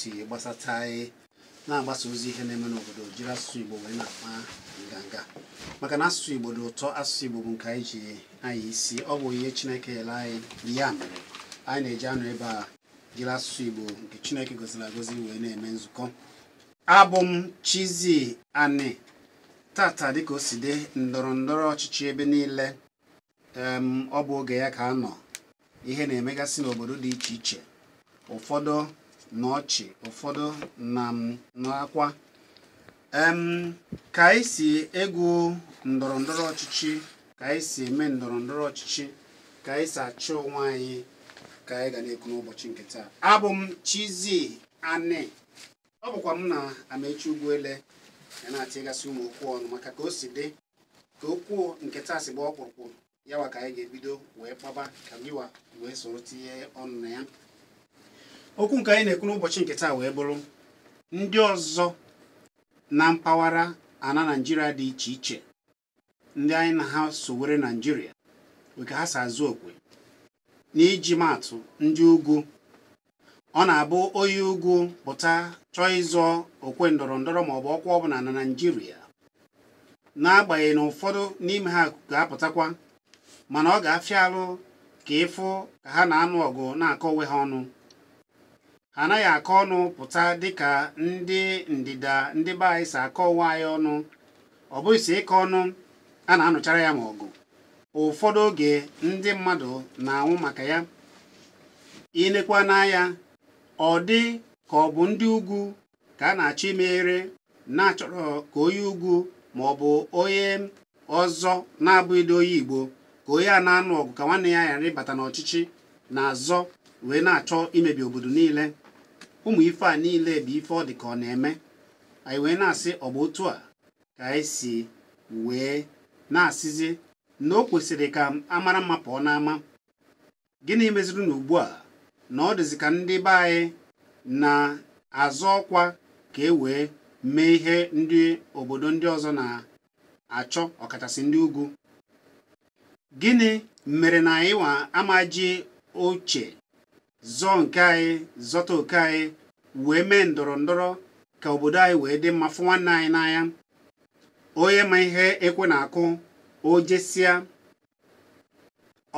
si gbasata anyị e, na-agbasa ozi ihe na-eme n'obodo jiri asụsụ Igbo wee na-akpa nganga maka na asụsụ Igbo dị ụtọ asụsụ Igbo bụ nke anyị ji anyị isi ọ bụ ihe Chineke yere anyị ya mere anyị na-eji anọ ebe a jiri asụsụ Igbo nke Chineke goziri agozi wee na-eme nzukọ abụ m Chizzy Ani tata dịka o si dị ndọrọ ndọrọ ọchịchị ebe niile ọ bụ oge ya ka a nọ ihe na-emegasị n'obodo dị iche iche ụfọdụ na ọchị ụfọdụ na n'akwa ka anyị si egwu ndọrọ ndọrọ ọchịchị ka anyị si eme ndọrọ ndọrọ ọchịchị ka anyị si achọ onwe anyị ka anyị ga na-ekwu n'ụbọchị nke taa abụ m Chizzy Ani ọ bụkwa m na amechi Ugwuele ya na-atịgasị ụmụ okwu ọnụ maka ka o si dị ka okwu nke taa si gba ọkpụrụkpụ yawa ka anyị ga-ebido wee kpaba ka gịwa wee soro tinye ọnụ na ya okwu nke anyị na-ekwu n'ụbọchị nke taa wee bụrụ ndị ọzọ na mpaghara ana naijiria dị iche iche ndị anyị na ha sowere naijiria nke ha si okwe okwe n'iji maatụ ndị ugwu ọ na-abụ onye ugwu pụta chọọ ịzọ okwe ndọrọ ndọrọ maọbụ ọkwa ọbụla na naijiria n'agbanyeghị na ụfọdụ n'ime ha ga-apụtakwa mana ọ ga-afịa alụ ka ịfụ ka ha na-anụ ọgụ na-akọ onwe ha ọnụ anaghị akọ ọnụ pụta dịka ndị ndịda ndị be anyị si akọ onwe anyị ọnụ ọ bụghị si ịkọ ọnụ a na-anụchara ya ma ọgụ ụfọdụ oge ndị mmadụ na-anwụ maka ya ilekwa n'anya ọ dị ka ọ bụ ndị ugwu ka a na-achọ imeghere na-achọrọ ka onye ugwu ma ọ bụ onye ọzọ na-abụghịdị onye Igbo ka onye a na-anụ ọgụ ka nwanne ya ghara ịbata n'ọchịchị na-azọ wee na-achọ imebi obodo niile ụmụ ife a niile bụ ife ọ dị ka ọ na-eme anyị wee na-asị ọ bụ otu a ka anyị si wee na-asịzi na o kwesịrị ka amara mma pụọ n'ama gịnị meziri na ugbu a na ọ dịzi ka ndị be anyị na-azọ ọkwa ka e wee mee ihe ndị obodo ndị ọzọ na-achọ ọkachasị ndị ugwu gịnị mere na anyị wa amaji oche zọọ nke anyị zọta oke anyị wee mee ndọrọ ndọrọ ka obodo anyị wee dị mma fụ nwanne anyị n'anya onye ma ihe ekwe na-akụ o jesịa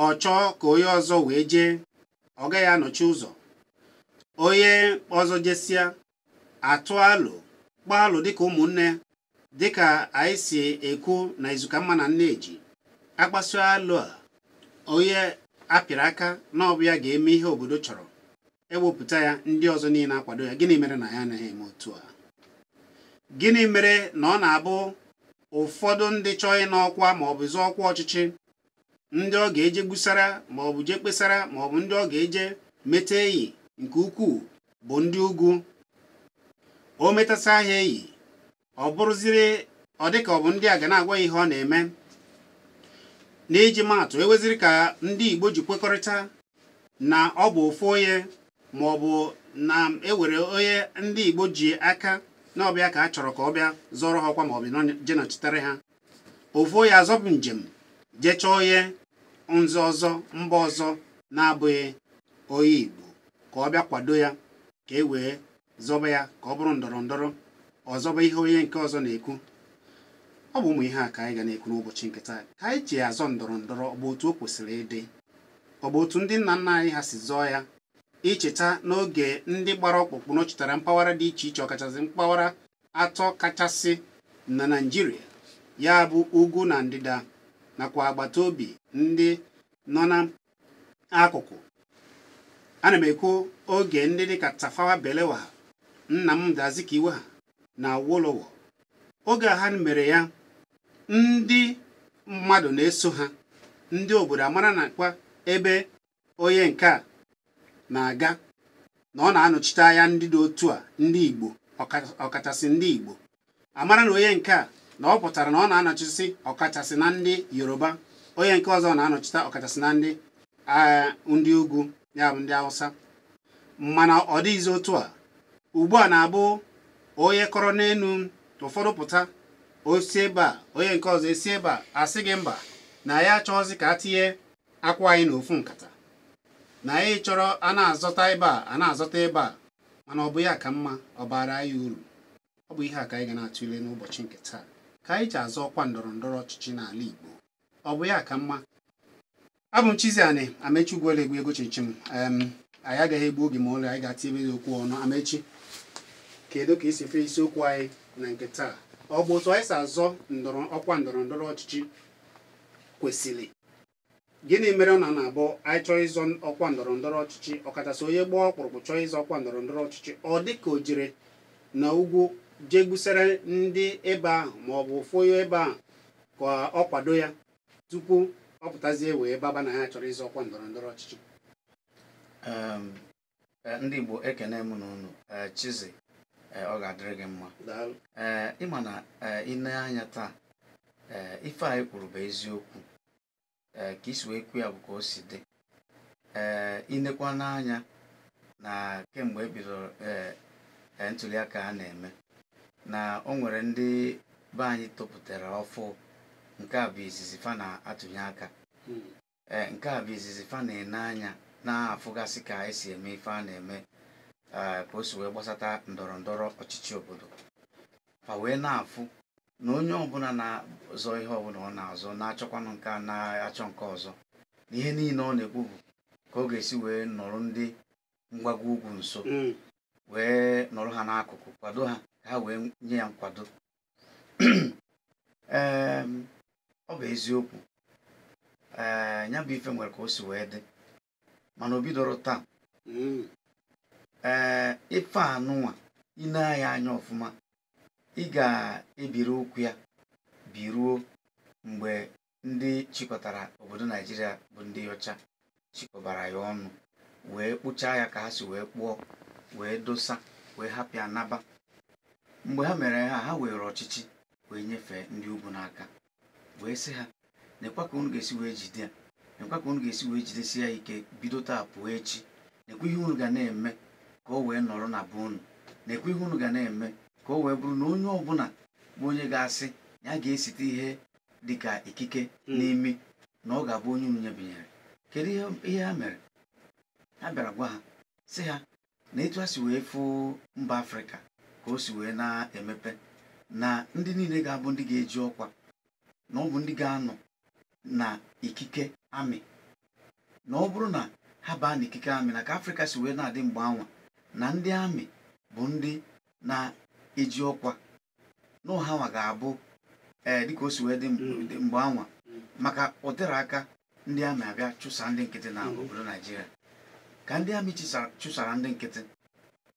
ọ chọọ ka onye ọzọ wee jee ọ gaghị anọchi ụzọ onye ọzọ jesịa atụ alụ gbaa alụ dịka ụmụnne dịka anyị si ekwu na izuka mma na eji akpasu alụ a onye a pịara aka na ya ga-eme ihe obodo chọrọ ewepụta ya ndị ọzọ niile akwado ya gịnị mere na ya anaghị eme otu a gịnị mere na ọ na-abụ ụfọdụ ndị chọọ ịnọ ọkwa ma ọ bụ zụọ ọkwa ọchịchị ndị ọ ga-eje gbusara maọbụ je jee kpesara maọbụ ndị ọ ga-eje meta eyi nke ukwuu bụ ndị ugwu o metasa ahịa eyi ọ bụrụziri ọ dịka ọ bụ ndị a ga na-agwa ihe ọ na-eme na iji maatụ eweziri ka ndị Igbo ji kwekọrịta na ọ bụ ofu onye ma ọ bụ na ewere onye ndị Igbo ji aka na ọbịa ka a chọrọ ka ọ bịa zọrọ ha ọkwa ma ọ bụ ha ofu onye azọbụ njem jecha onye nzọ ọzọ mba ọzọ na-abụghị onye Igbo ka ọ bịa kwado ya ka e wee zọba ya ka ọ bụrụ ndọrọ ndọrọ ọzọba ihe onye nke ọzọ na-ekwu ọ bụ ụmụ ihe a ka anyị ga na-ekwu n'ụbọchị nke taa ka anyị ji azọ ndọrọ ndọrọ ọ bụ otu o kwesịrị ịdị ọ bụ otu ndị nna nna anyị ha si zọọ ya icheta n'oge ndị gbara ọkpụkpụ nọchitere mpaghara dị iche iche ọkachasị mpaghara atọ kachasị na Naịjirịa ya bụ ugwu na ndịda nakwa agbata obi ndị nọ n'akụkụ ana m ekwu oge ndị dịka Tafawa nna Nnamdi Azikiwe ha na Awolowo oge ha mere ya ndị mmadụ na-eso ha ndị obodo amara na kwa ebe onye nke a na-aga na ọ na-anọchite anya ndị otu a ndị Igbo ọkachasị ndị Igbo amara na onye nke a na ọ pụtara na ọ na-anọchisi ọkachasị na ndị Yoruba onye nke ọzọ na-anọchite ọkachasị na ndị agha ndị ugwu ya bụ ndị Hausa mana ọ dịghịzi otu a ugbu a na-abụ onye kọrọ n'elu ụfọdụ pụta osi ebe a onye nke ọzọ esi ebe a asị gị mba na ya achọghịzị ka a tinye akwa anyị n'ofu nkata na anyị chọrọ a na-azọta ebe a a na-azọta ebe a mana ọ bụ ya ka mma ọ anyị uru ọ bụ ihe a ka anyị ga na-atụle n'ụbọchị nke taa ka anyị ji azọ ọkwa ndọrọ ndọrọ ọchịchị n'ala Igbo ọ bụ ya ka mma abụ m Chizzy amechi Amechi Ugwuolegwe ego chichi m anyị agaghị egbu oge ma ụlọ anyị ga-atinyebe okwu ọnụ Amechi kedu ka esi efe isiokwu anyị na nke taa ọ bụ otu anyị si azọ ọkwa ndọrọ ndọrọ ọchịchị kwesịrị gịnị mere ọ na na-abụ anyị chọọ ịzọ ọkwa ndọrọ ndọrọ ọchịchị ọkachasị onye gbaa ọkpụrụkpụ chọọ ịzọ ọkwa ndọrọ ndọrọ ọchịchị ọ dị ka o jere na ugwu jee ndị ebe ahụ ma ọ bụ ụfụ ebe ahụ ka ọ kwado ya tupu ọ pụtazie wee baba na ya chọrọ ịzọ ọkwa ndọrọ ndọrọ ọchịchị eh, ndị Igbo ekene m n'ụnụ ọ ga-adịrị gị mma ee ịma na ịne anya taa ee ife anyị kwuru bụ eziokwu ee ka isi wee kwu ya bụ ka o si dị ee ịnekwa n'anya na kemgbe ebidoro ee ntuliaka a na-eme na o nwere ndị be anyị topụtara ọfụ nke a bụ izizi fa na-atụnye aka hmm. ee nke a bụ izizi fa na-ene anya na-afụgasị ka esi eme ife a na-eme ka o si wee gbasata ndọrọ ndọrọ ọchịchị obodo ka wee na-afụ na onye ọbụla na-azọ ihe ọbụla ọ na-azọ na-achọkwanụ nke a na-achọ nke ọzọ na ihe niile ọ na-ekwu ka ọ ga-esi wee nọrọ ndị mgbago ugwu nso mm. wee nọrọ ha n'akụkụ kwado ha ka ha wee nye ya nkwado ọ bụ eziokwu ee ya bụ ife nwere ka o si wee dị mana o bidoro taa mm. ee ife anụnwa ine ya anya ọfụma ị ga-ebiri ụkwụ ya biruo mgbe ndị chịkọtara obodo naijiria bụ ndị ọcha chịkọbara ya ọnụ wee kpụchaa ya ka ha si wee kpụọ wee dosa wee hapụ ya naba mgbe ha mere ha ha were ọchịchị wee nyefee ndị ugwu n'aka wee sị ha nekwa ka unu ga-esi wee jide nekwa ka unu ga-esi wee jidesi ya ike bido taa pụọ echi nekwa ihe unu ga na-eme ka o wee nọrọ na be unu na-ekwe ihe unu ga na-eme ka o wee bụrụ na onye ọbụla bụ onye ga-asị ya ga-esite ihe dịka ikike hmm. n'imi na ọ ga-abụ onye unu nyebinyere kedu ihe ha mere ha bịara gwa ha sị ha na etu ha si wee fụ mba afrịka ka o si wee na-emepe na ndị niile ga-abụ ndị ga-eji ọkwa na ọ bụ ndị ga-anọ na ikike amị na ọ bụrụ na ha baa ikike amị na ka afrịka si wee na-adị mgbe anwa na ndị amị bụ ndị na-eji ọkwa n'ụhanwa ga-abụ ee eh, dịka o si wee dị hmm. mgbe anwa hmm. maka ụdịrị aka ndị amị abịa chụsa ndị nkịtị na hmm. obodo naijiria ka ndị amị chụsara ndị nkịtị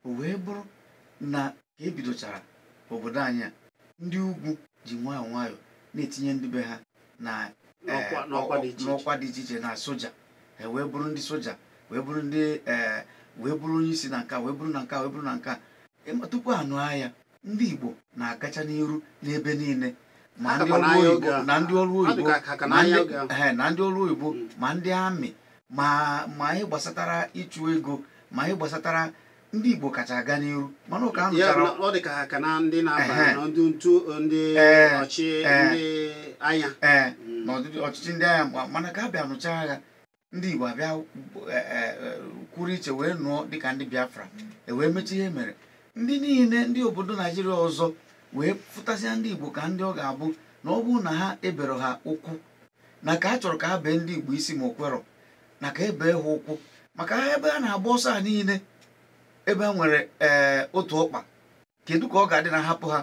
o wee bụrụ na ka ebidochara obodo anyị a ndị ugwu ji nwayọọ nwayọọ na-etinye ndị be ha na eh, n'ọkwa dị iche iche na soja wee bụrụ ndị soja wee bụrụ ndị ee eh, wee bụrụ onye isi na nka wee bụrụ na nka wee bụrụ na nka tupu anụ ahịa ndị Igbo na-agacha n'iru n'ebe niile ma ndị ọrụ oyibo na ndị ọrụ oyibo na ndị ọrụ oyibo ma ndị amị ma ma anyị gbasatara ịchụ ego ma anyị gbasatara ndị Igbo kacha aga n'iru mana ụka anụchara ọ dị ka ha ka na ndị na-aba na ndị ntu ndị ọchị ndị anya mm. na ọchịchị ndị anya mana ka a bịa nụcha agha ndị Igbo abịa e, e, e, kwuru iche wee nụọ dịka ndị Biafra ewee mechie ihe mere ndị niile ndị obodo Naijiria ọzọ wee fụtasịa ndị Igbo ka ndị ọ ga-abụ na ọ bụrụ na ha ebere ha ụkwụ na ka a chọrọ ka ha bee ndị Igbo isi ma okwerọ na ka ebee ha ụkwụ maka ha ebe a na-agba ọsọ a niile ebe a nwere otu ọkpa kedu ka ọ ga-adị na hapụ ha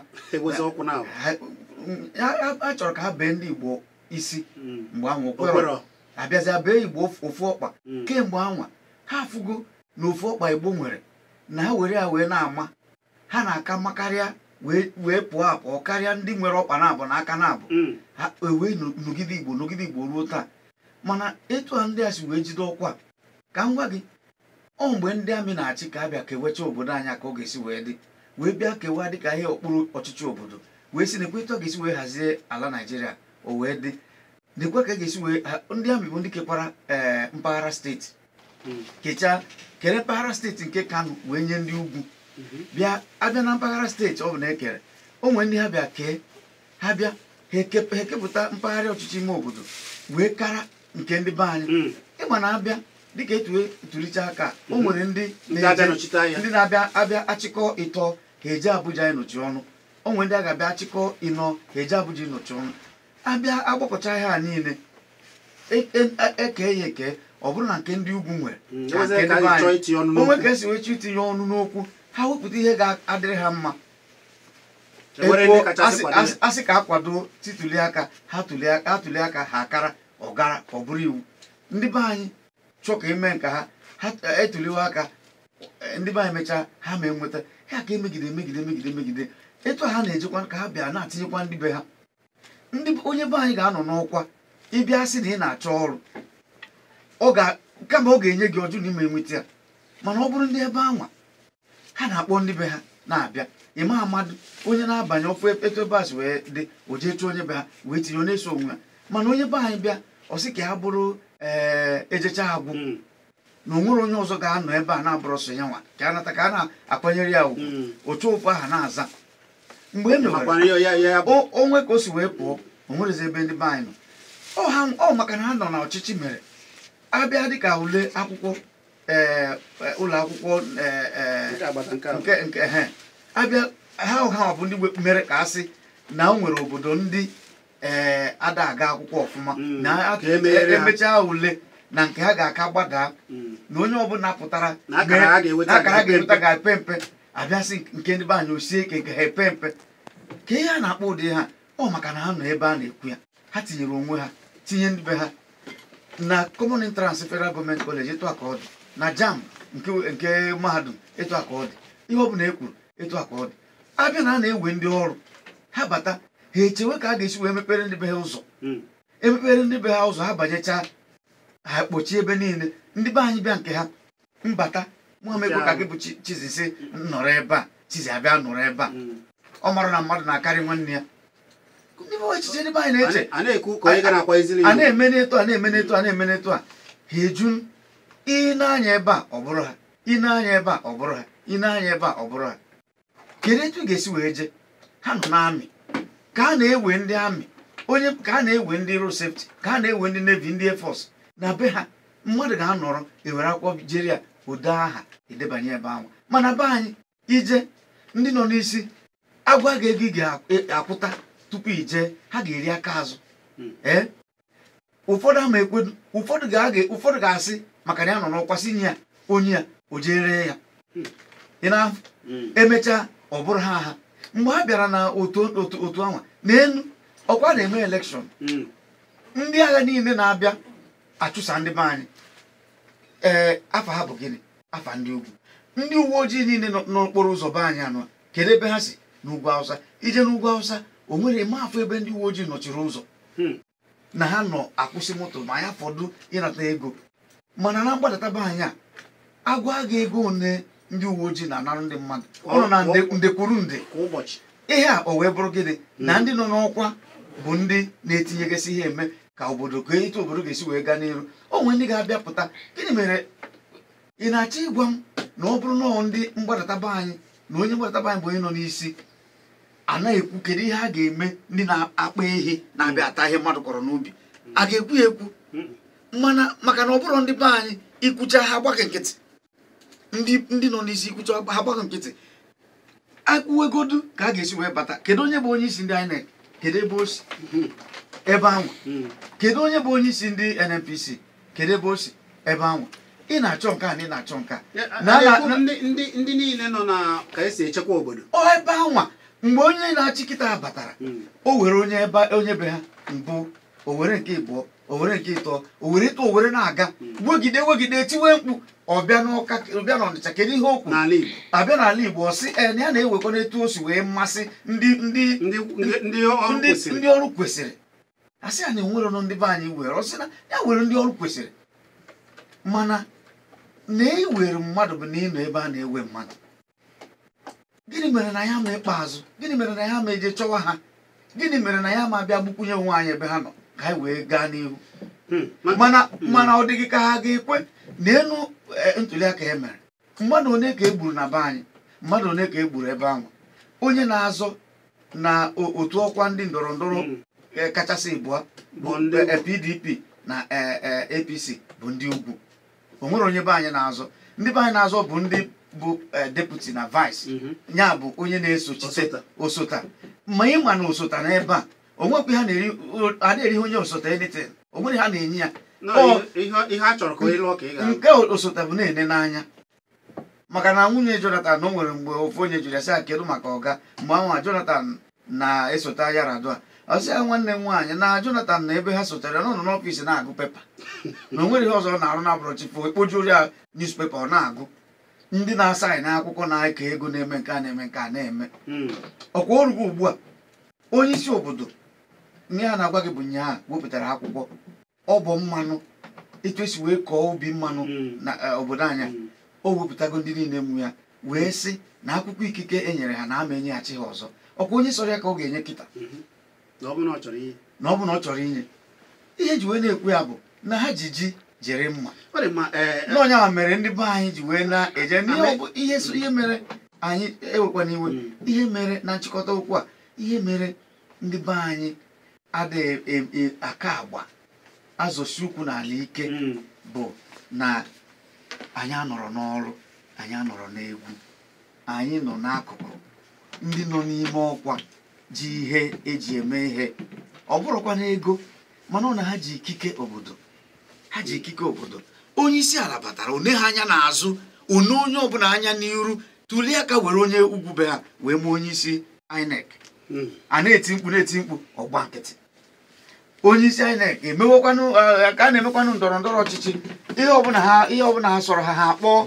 a chọrọ ka ha bee ndị Igbo isi hmm. mgbe ahụ okwerọ abịazịa bee igbo ofu ọkpa hmm. kemgbe anwa ha afụgo na ofu ọkpa igbo nwere na ha were ya wee na-ama ha na-aka mma karịa wee pụọ apụọ karịa ndị nwere ọkpa na-abụ na aka na-abụ hmm. ewee nọgide igbo n'ogide igbo ruo taa mana etu a ndị a si wee jide ọkwa ka m gwa gị ọ mgbe ndị amị na-achị ka abịa kewecha obodo anya ka ọ ga-esi wee dị wee bịa kewa dịka ihe okpuru ọchịchị obodo wee si na ekwe etu ga-esi wee hazie ala naijiria o wee dị lekwa ka a ga-esi wee eh, ndị amị bụ ndị kekwara eh, mpaghara steeti hmm. kechaa kere mpaghara steeti nke kano wee nye ndị ugwu mhm. bịa abịa na mpaghara steeti ọ bụ na ekere o nwere ndị ha bịa kee ha bịa ha ekepụta mpaghara ọchịchị ime obodo wee kara nke ndị be anyị hmm. ịma na abịa dịka etuwe tulicha aka o mhm. nwere ndị ndị na-abịa abịa achịkọ ịtọ ha eje abụja ịnọchi ọnụ o nwere ndị a ga-abịa achịkọ ịnọ ha eje abụja ịnọchi ọnụ abịa agbapụcha ha niile eke e, e, e ya eke ọ bụrụ na nke ndị ugwu nwere onwe mm, ka esi wechi itinye ọnụ n'okwu ha wepụta ihe ga-adịrị ha mma asị ka akwado tituli aka ha tuli aka ha akara ọgara ọ bụrụ iwu ndị be anyị chọọ ka eme nke ha ha etuliwa aka ndị be anyị mechaa ha ma enweta ha ka emegide megide megide megide etu ha na-ejekwa ka ha bịa na-atinyekwa ndị be ha ndị onye be anyị ga-anọ n'ọkwa ịbịa sị na ị na-achọ ọrụ kama ọ ga-enye gị ọjụ na ime enweta ya mana ọ bụrụ ndị ebe anwa ha na-akpọ ndị be ha na-abịa ịma amadụ onye na-abanye ọfụ etobas wee dị o jee chụọ onye be ha wee tinye onye so onwe ya mana onye be anyị bịa ọ sị ka ya bụrụ ee eh, ejecha agwụ hmm. na onwere onye ọzọ ga-anọ ebe a na-abụrụ sọ ya nwa ka a nata ka a na-akwanyere ya ugwu hmm. otu ụfụ aha na-aza mgbe e onwe ka o si wee pụọ o nwerezi ebe ndị be anyị nọ ọ maka na ha nọ na ọchịchị mere abịa dịka ule akwụkwọ e, e, ụlọ akwụkwọ nke abịa ha ọha bụ ndị mere ka a sị na o nwere obodo ndị ee ada aga akwụkwọ ọfụma mm. na emechaa ule na nke ha ga-aka gbadaa mm. na onye ọbụla pụtara akara ha ga-eweta ga-epe mpe abịasị nke ndị be anyị osie ike nke ha epe mpe ka ihe a na-akpọ ụdị ha ọ maka na ha nọ ebe a na-ekwu ya ha tinyere onwe ha tinye ndị be ha na common entrance federal gọọmenti kọleji ịtụ aka ọ dị na jam nke mahadum ịtụ aka ọ dị ihe ọ bụla e kwuru ịtụ aka ọ dị abịa na a na-ewe ndị ọrụ ha bata ha echewe ka a ga-esi wee mepere ndị be ha ụzọ hmm. emepere ndị be ha ụzọ ha banyechaa ha kpochie ebe niile ndị be anyị bịa nke ha mbata nwaamegbo ka gị bụ Chizzy si nọrọ ebe a Chizzy abịa nọrọ ebe a ọ mara na mmadụ na-akarị nwanne ya echiche ndị anyị na-eche a na-eme n'etu a na-eme n'etu a na-eme n'etu a ha eju ị na-anya ebe a ọ bụrụ ha ị na-anya ebe a ọ bụrụ ha ị na-anya ebe a ọ bụrụ ha kedu etu ị ga-esi wee jee ha nọ n'amị ka a na-ewe ndị amị onye ka a na-ewe ndị ro sefti ka a na-ewe ndị nevi ndị efọs na be ha mmadụ ga-anọrọ ewere akwụkwọ jere ụdọ aha edebanye ebe ahụ mana be anyị ije ndị nọ n'isi agwa gị ego ị ga-akwụta tupu ije ha ga-eri aka azụ hmm. ee eh? ụfọdụ ama ekwedu ụfọdụ ga-asị maka na ya nọ n'ọkwa ya onye ya o jere ya hmm. ị na-afụ hmm. emechaa ọ bụrụ ha ha mgbe ha bịara na otu anwa n'elu ọkwa na-eme elekshọn ndị agha niile na-abịa achụsa ndị be anyị ee eh, afa ha bụ gịnị afa ndị ugwu ndị uwe ojii niile n'okporo ụzọ be anyị anọ kedu ebe ha si n'ugwu awụsa ije n'ugwu awụsa o nwere eme afọ ebe ndị uwe ojii nọchiri ụzọ hmm. na ha nọ akwụsị moto ma ya fọdụ ịnata ego mana na mgbadata be anyị a agwa gị ego one ndị uwe ojii na-anara ndị mmadụ ọ nọ na ndekwuru nde ihe a o wee bụrụ gịnị na hmm. ndị nọ n'ọkwa bụ ndị na-etinyegasị ihe eme ka obodo ka etu obodo ga-esi wee gaa n'iru onwe ndị ga-abịapụta gịnị mere ị na-achọ ịgwa m na ọ bụrụ nọọ ndị mgbadataba anyị na onye mgbadataba anyị bụ onye nọ n'isi anaghị ekwu kedu ihe a ga-eme ndị na-akpa ehi na-abịa ata ihe mmadụ kọrọ n'ubi a ga-ekwu ya ekwu maka na ọ bụrụ ndị be anyị ikwucha ha gbaghị nkịtị ndị nọ n'isi ikwucha ha gbaghị nkịtị akwụwegodu ka a ga-esi wee bata kedu onye bụ onye isi ndị INEC kedu ebe o si ebe anwa hmm. kedu onye bụ onye isi ndị NNPC kedu ebe o si ebe anwa ị na-achọ nke a na ị na-achọ nke a ndị niile nọ na ka esi echekwa obodo ọ ebe anwa mgbe onye na-achị kịta batara hmm. o were onye ebe onye be ha mbụ o were nke ịbụọ o were nke ịtọ o were ịtọ o were na-aga hmm. wegide wegide tiwe mkpu ọbịa n'ụka ọbịa n'ọnịcha kedu ihe okwu abịa n'ala Igbo ọ sị e na ya na ewekwa n'etu o si wee mmasị ndị ndị ọrụ kwesịrị a sị ya na enwere ndị be anyị were ọ sị na ya were ndị ọrụ kwesịrị mana na iwere e mmadụ bụ na ịnọ ebe a na-ewe mmadụ gịnị mere na ya ma ikpeazụ gịnị mere na ya ma eje chọwa ha gịnị mere na ya ma abịa gbukwunye onwe anyị ebe ha nọ ka anyị wee gaa n'ihu hmm, mana hmm. mana ọ dịghị ka ha ga-ekwe na elu ntuliaka e mere mmadụ one ka e gburu na be anyị mmadụ one ka e gburu ebe ahụ onye na-azọ na otu ọkwa ndị ndọrọ ndọrọ hmm. Eh, kachasị ịbụọ bụ ndị PDP eh, na eh, APC bụ ndị ugwu o nwere onye be anyị na-azọ ndị be anyị na-azọ bụ ndị bụ deputi na vice mhm. ya bụ onye na-esochite osota ma ị ma na osota n'ebe a onwekwe ha na-erihe onye osota elitin onwere ha na-enye ya nke osota bụ na-ene n'anya maka na nwunye Jonathan o nwere mgbe ofu onye jụrụ ya sị a kedu maka ọga mgbe anwa Jonathan na esota ya radua sị ya nwanne m nwaanyị na Jonathan na ebe ha sotere na ụlọ n'ọfịs na-agụ pepa na o nweghị ihe ọzọ na-arụ na brọchifo ekpojuru ya newspaper ọ na-agụ ndị na na akwụkwọ na-eke ego na-eme nke a na-eme nke a na-eme hmm. ọkwa orugo ugbu a onye isi obodo ihe a na-agwa gị bụ nyaa wepụtara akwụkwọ ọ bụ mmanụ etu esi wee kọọ ubi mmanụ hmm. na e, obodo anya hmm. o wepụtago ndị niile mụ ya wee sị na akwụkwọ ikike e nyere ha na ama enyeghachi ha ọzọ ọkwa onye sọrọ ya ka ọ ga-enye kịta na ọ bụ na ọ chọrọ inye ihe ji wee na ekwe ya bụ na ha ji ji jere mma n'ọnya ma e, e, mere ndị be anyị ji wee na-eje n'ihe ihe mere anyị ewekwa n'iwe hmm. ihe mere na nchịkọta okwu a ihe mere ndị be anyị adịghị e, aka agba azụsi ukwu n'ala ike hmm. bụ na anyị anọrọ n'ọrụ anyị anọrọ n'egwu anyị nọ n'akụkụ ndị nọ n'ime ọkwa ji ihe eji eme ihe ọ bụrụkwa ego mana ọ na ha ji ikike obodo ha ji ikike obodo onye isi ala batara one ha anya n'azụ one onye ọbụla anya n'iru tulie aka were onye ugwu be ha wee mee onye isi INEC hmm. a na-eti mkpu na-eti mkpu ọgba nkịtị onye isi INEC emewekwanụ ka a na-emekwanụ ndọrọ ndọrọ ọchịchị ihe ọbụla ha ihe ọbụla ha sọrọ ha ha kpọọ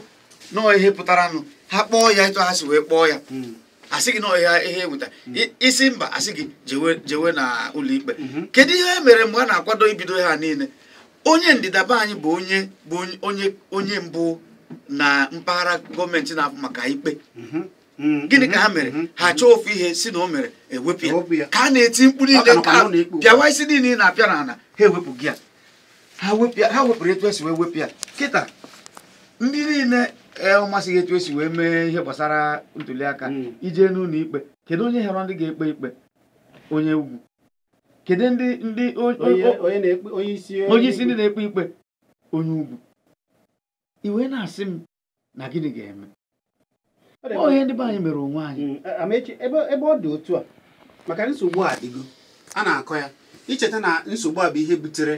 nọọ ihe pụtaranụ ha kpọọ ya ịtụ ha wee kpọọ ya hmm. asị gị na ọhịa ihe eweta mm. isi mba asị gị jewe jewe na ụlọikpe mm-hmm. kedu ihe mere mgbe a na-akwado ibido ha niile onye ndịdaba anyị bụ onye bụ onye onye mbụ na mpaghara gọọmenti na-afụ maka ikpe mm-hmm. Mm-hmm. gịnị ka ha mere ha chọọ ofu ihe si na o mere e ewepụ ya ka a na-eti mkpu niile ka bịawa isi niile na-apịa na-ana ha ewepụ gị ya ha wepụrụ etu esi wee wepụ ya kịta ndị niile ee ụmasị gị etu esi wee mee ihe gbasara ntuliaka hmm. ijee n'ụlọ ikpe kedu onye họrọ ndị ga-ekpe ikpe onye ugwu kedu ndị ndị onye isi ndị na-ekpe ikpe onye ugwu iwe na-asị m na gịnị ga-eme onye ndị be anyị mere onwe anyị hmm, ebe ọ dị otu a maka nsogbu a dịgo a na-akọ ya icheta na nsogbu a bụ ihe butere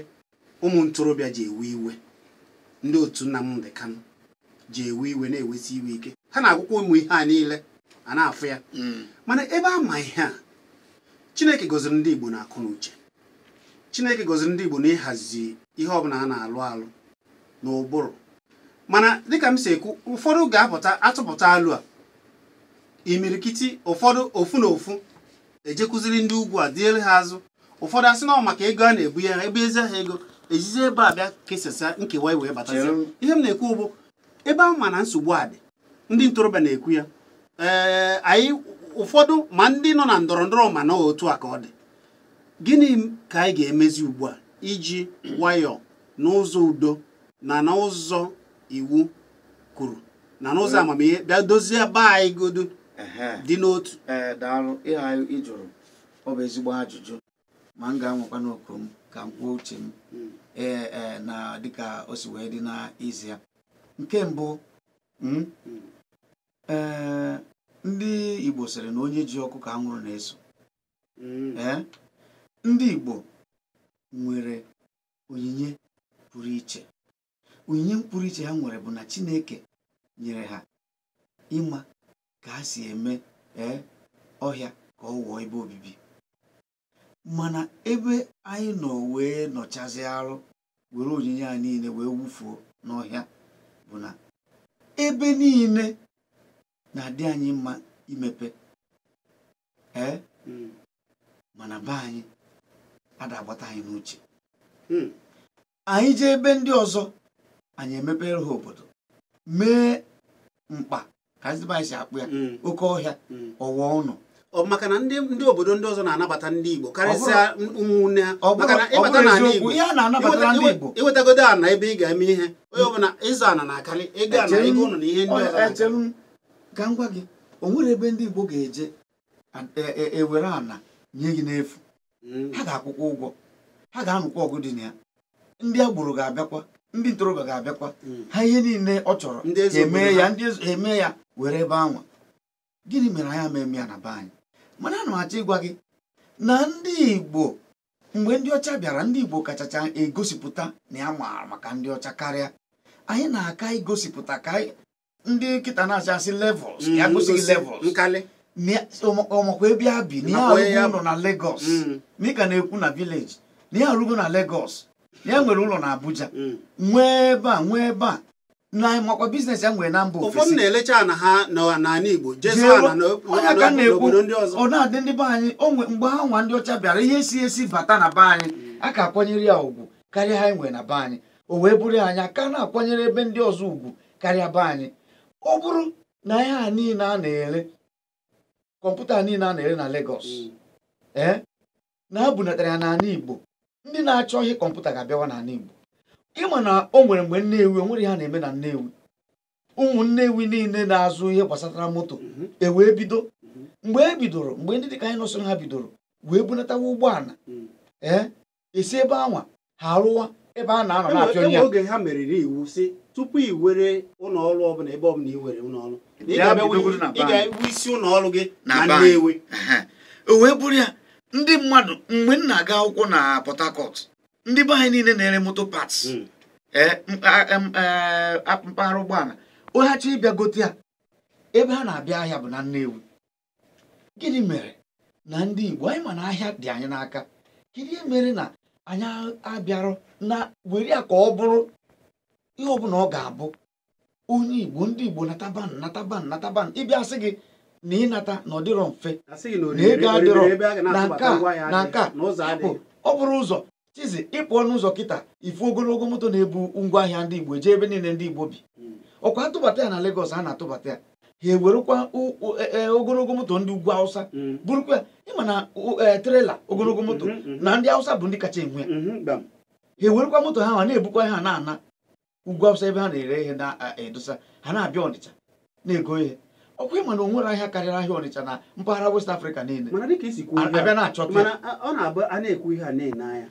ụmụ ntorobịa ji ewe iwe ndị otu nna m dị kanụ. ji ewe iwe na-ewesi iwe ike ha na-agwụkwa ụmụ ihe a niile a na-afụ ya hmm. mana ebe a ma ihe a chineke gọziri ndị igbo na akụ na uche chineke gọziri ndị igbo na ịhazi ihe ọbụla a na-alụ alụ na ụbụrụ mana dịka m si ekwu ụfọdụ ga-apụta atụpụta alụ a imirikiti ụfọdụ ofu na ofu ejekwuziri ndị ugwu a diele ha azụ ụfọdụ asị na maka ego a na-ebu ya ebe ezi ha ego ejizi ebe a bịa kesasa nkewa wee bata ihe m na-ekwu ụbụ ebe ahụ ma na nsogbu a dị ndị ntorobịa na-ekwu ya ee anyị ụfọdụ ma ndị nọ na ndọrọ ndọrọ ma na otu a ka ọ dị gịnị ka anyị ga-emezi ugbu a iji nwayọọ n'ụzọ udo na n'ụzọ iwu kwuru na n'ụzọ amamihe bịa dozie ba anyị godu dị n'otu ee anyị ịjụrụ ọ bụ ezigbo ajụjụ ma m ga-anwekwa n'okwu m ka m kwuo uche m hmm. ee e, na dịka o si wee dị na ya nke mbụ hmm, eh, ndị Igbo sịrị na onye ji ọkụ ka anwụrụ na-eso hmm. eh, ndị Igbo nwere onyinye pụrụ iche onyinye pụrụ iche ha nwere bụ na Chineke nyere ha ịma ka ha si eme ee eh, ọhịa ka ọ wụọ ebe obibi mana ebe anyị nọ wee nọchazi arụ were onyinye a niile wee wufuo n'ọhịa bụ na ebe niile na-adị anyị mma imepe ee hmm. mana be anyị adagbata anyị n'uche hmm. anyị jee ebe ndị ọzọ anyị emepere ha obodo mee mkpa ka anyị si akpụ ya hmm. oke ọhịa ọwa ọnụ. ọ maka na ndị obodo ndị ọzọ na-anabata ndị Igbo karịsịa ụmụnne ha maka na ịbata n'ala Igbo iwetagodo ana ebe ị ga-eme ihe onye hmm. ọbụla ịzụ ana na-akarị ego ana ego ụnụ na ihe ndị ọzọ ka m gị o nwere ebe ndị Igbo ga-eje ewere e- e ana nye gị n'efu hmm. ha ga-akwụkwọ ụgwọ ha ga-anụkwa ọgụ dị na ya ndị agboro ga-abịakwa ndị ntorobịa ga-abịakwa hmm. ha ihe niile ọ chọrọ eme ya were ebe anwa gịnị mere anyị ama eme ya na be anyị mana ana achọ ịgwa gị na ndị Igbo mgbe ndị ọcha bịara ndị Igbo kachacha egosipụta na ya maara maka ndị ọcha karịa anyị na-aka igosipụta ka ndị nkịta mm, na acha asị levels ya gosighị levels ọmakwa ebe ya bi na arụgo ụlọ na Lagos mịka mm. na-ekwu na village na ya arụgo na Lagos ya nwere ụlọ na Abuja mm. nwee ebe a nwee ebe a makwa biznes ya nwere na mba ofesi ụfọdụ na-elecha ana ha n'ala Igbo obodo ndị ọzọ ọ na-adị ndị be anyị onwe mgbe ha nwa ndị ọcha bịara ihe si esi bata na be anyị mm. a ka akwanyere ya ugwu karịa ha nwere na be anyị o wee bụrụ anya ka na-akwanyere ebe ndị ọzọ ugwu karịa be anyị ọ bụrụ na ihe a niile a na-ere kọmputa niile a na-ere na legos na ha ya n'ala Igbo ndị na-achọ ihe kọmputa ga-abịawa n'ala Igbo ịma na o nwere mgbe nnewi onwere ha na-eme na nnewi ụmụ nnewi niile na-azụ ihe gbasatara moto mhm. e wee bido mgbe e bidoro mgbe ndị dịka anyị nọsoro ha bidoro wee bunatawa ụgbọala mhm. ee eh, esi ebe anwa ha arụwa ebe a na-anọ na-apịọ ya oge ha meriri iwu si tupu i were ụlọọrụ ọbụla ebe ọbụla i were ụlọọrụ ị ga-ewu isi ụlọọrụ gị na Nnewi o wee bụrụ ya ndị mmadụ mgbe m na-aga akwụkwọ na Port Harcourt ndị be anyị niile na-ere moto pats hmm. e, e, mpaghara ụgbọala onye achọ ịbịa gote ya ebe ha na-abịa ahịa bụ na nnewu gịnị mere na ndị Igbo anyị ma na ahịa dị anyị n'aka gịnị mere na anyị abịarọ na were ya ka ọ bụrụ ihe ọbụla ọ ga-abụ onye Igbo ndị Igbo nataba nataban nataba ịbịa sị gị na ịnata na ọ dịrọ mfe na ego adịrọ na nke a na nke a ọ bụrụ ụzọ chizi ịpụ ọnụ ụzọ kịta ifu ogologo moto na-ebu ngwa ahịa ndị Igbo jee ebe niile ndị Igbo bi ọkwa atụbata ya na legos a na-atụbata ya ha ewerekwa e, e, ogologo moto ndị ugwu awụsa mm. bụrụkwa ịma na e, trela ogologo moto mm-hmm, mm-hmm. na ndị awụsa bụ ndị kacha enwe mm-hmm, ha ewerekwa moto ha na-ebukwa ha na-ana ugwu awụsa ebe ha na-ere ihe na-edosa ha na-abịa Ọnịcha na-ego ihe ọkwa ịma na onwere ahịa karịrị ahịa Ọnịcha na mpaghara West Africa niile ọ na-abụ a na-ekwu ihe a na-ene anya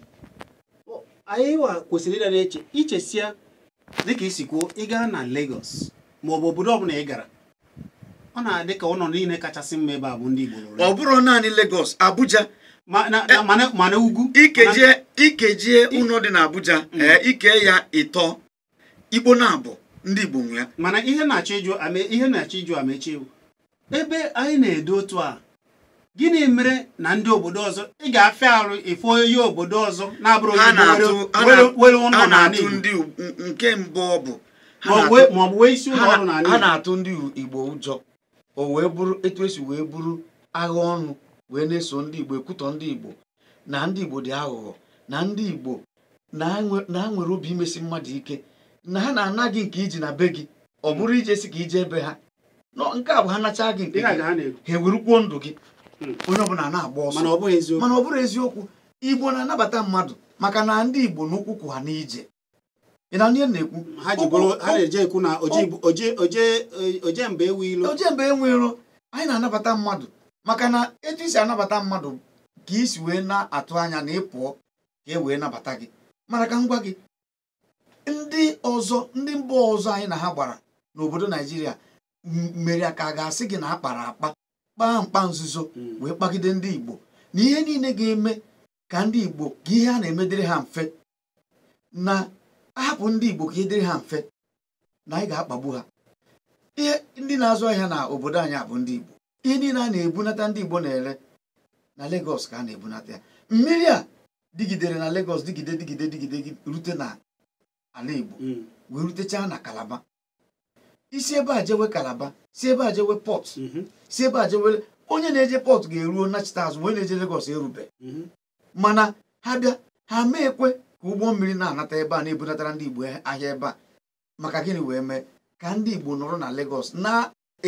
anyị kwesịrị ịdara eche ichesia dịka isi kwuo ị gaa na Lagos ma ọ bụ obodo ọbụla ị gara ọ na-adị ka ọnọdụ niile kachasị mma ebe a bụ ndị Igbo ọ bụrụ naanị Lagos Abuja mana ugwu ikejie ikejie ụlọ dị na Abuja mm. ike ya ịtọ Igbo na-abụ ndị Igbo nwe ya mana ihe na-achọ ịjụ amechi ebe anyị na-edo otu a gịnị mere na ndị obodo ọzọ ị ga-afịa arụ efe onye obodo ọzọ na-abụrụ nke mbụ ọ bụ ha na-atụ ndị igbo ụjọ o wee bụrụ etu esi wee bụrụ agha ọnụ wee na-eso ndị igbo ekwutọ ndị igbo na ndị igbo dị aghụghọ na ndị igbo na nwere obi imesi mmadụ ike na ha na-ana gị nke iji na be gị ọ bụrụ si ka ije ebe ha nke a bụ ha nacha gị nke ha ewerukwuo ndụ gị Hmm. onye ọbụla na-agba ọsọ mana ọ bụrụ eziokwu igbo na-anabata mmadụ maka na ndị igbo n'ụkwụ kwụ ha n'ije ị na ihe na-ekwu ha na-eje ekwu na oje mba enwe iro oje mba anyị na-anabata mmadụ maka na etu isi anabata mmadụ ka isi wee na-atụ anya na ịpụọ ka e wee nabata gị mara ka ngwa gị ndị ọzọ ndị mba ọzọ anyị na ha gbara n'obodo naijiria mere ka a ga-asị gị na a kpara akpa kpaa mkpa nzuzo mm. wee kpagide ndị Igbo na ihe niile ga-eme ka ndị Igbo ka ihe a na-emedịrị ha mfe na ahapụ ndị Igbo ka ihe dịrị ha mfe na anyị ga-akpagbu ha ihe ndị na-azụ ahịa na obodo anyị abụ ndị Igbo ihe niile a na-ebunata ndị Igbo na-ere na Legọs ka a na-ebunata ya mmiri a digidere na legos digide digide digide rute na ala Igbo mm. wee rutechaa na Kalaba isi ebe a jewe kalaba si ebe ajewe jewe pọt mhm. si ebe a onye na-eje pọt ga-eruo nachita azụ onye na-eje Legọs erube mhm. mana ha bịa ha mee ekwe ka ụgbọ mmiri na-anata ebe a na-ebunatara ndị Igbo ahịa ebe a maka gịnị wee mee ka ndị Igbo nọrọ na legos na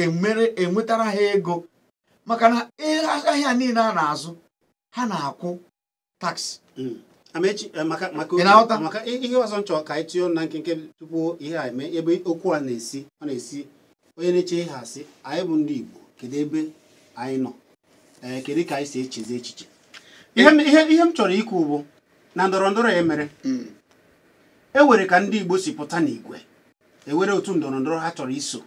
enwetara ha ego maka na e, ahịa niile a na-azụ ha na-akwụ taksi mm. Amaechi eh, maka maka ihe ọzọ nchọ ka anyị tụọ na nkenke tupu ihe a eme ebe okwu a na-esi ọ na-esi onye na-eche ihe asị anyị bụ ndị Igbo kedu ebe anyị nọ eh, kedu ka anyị si echezi echiche ihe m chọrọ ikwu bụ na ndọrọ ndọrọ ya mere hmm. e were ka ndị Igbo si pụta n'igwe ewere otu ndọrọ ndọrọ ha chọrọ iso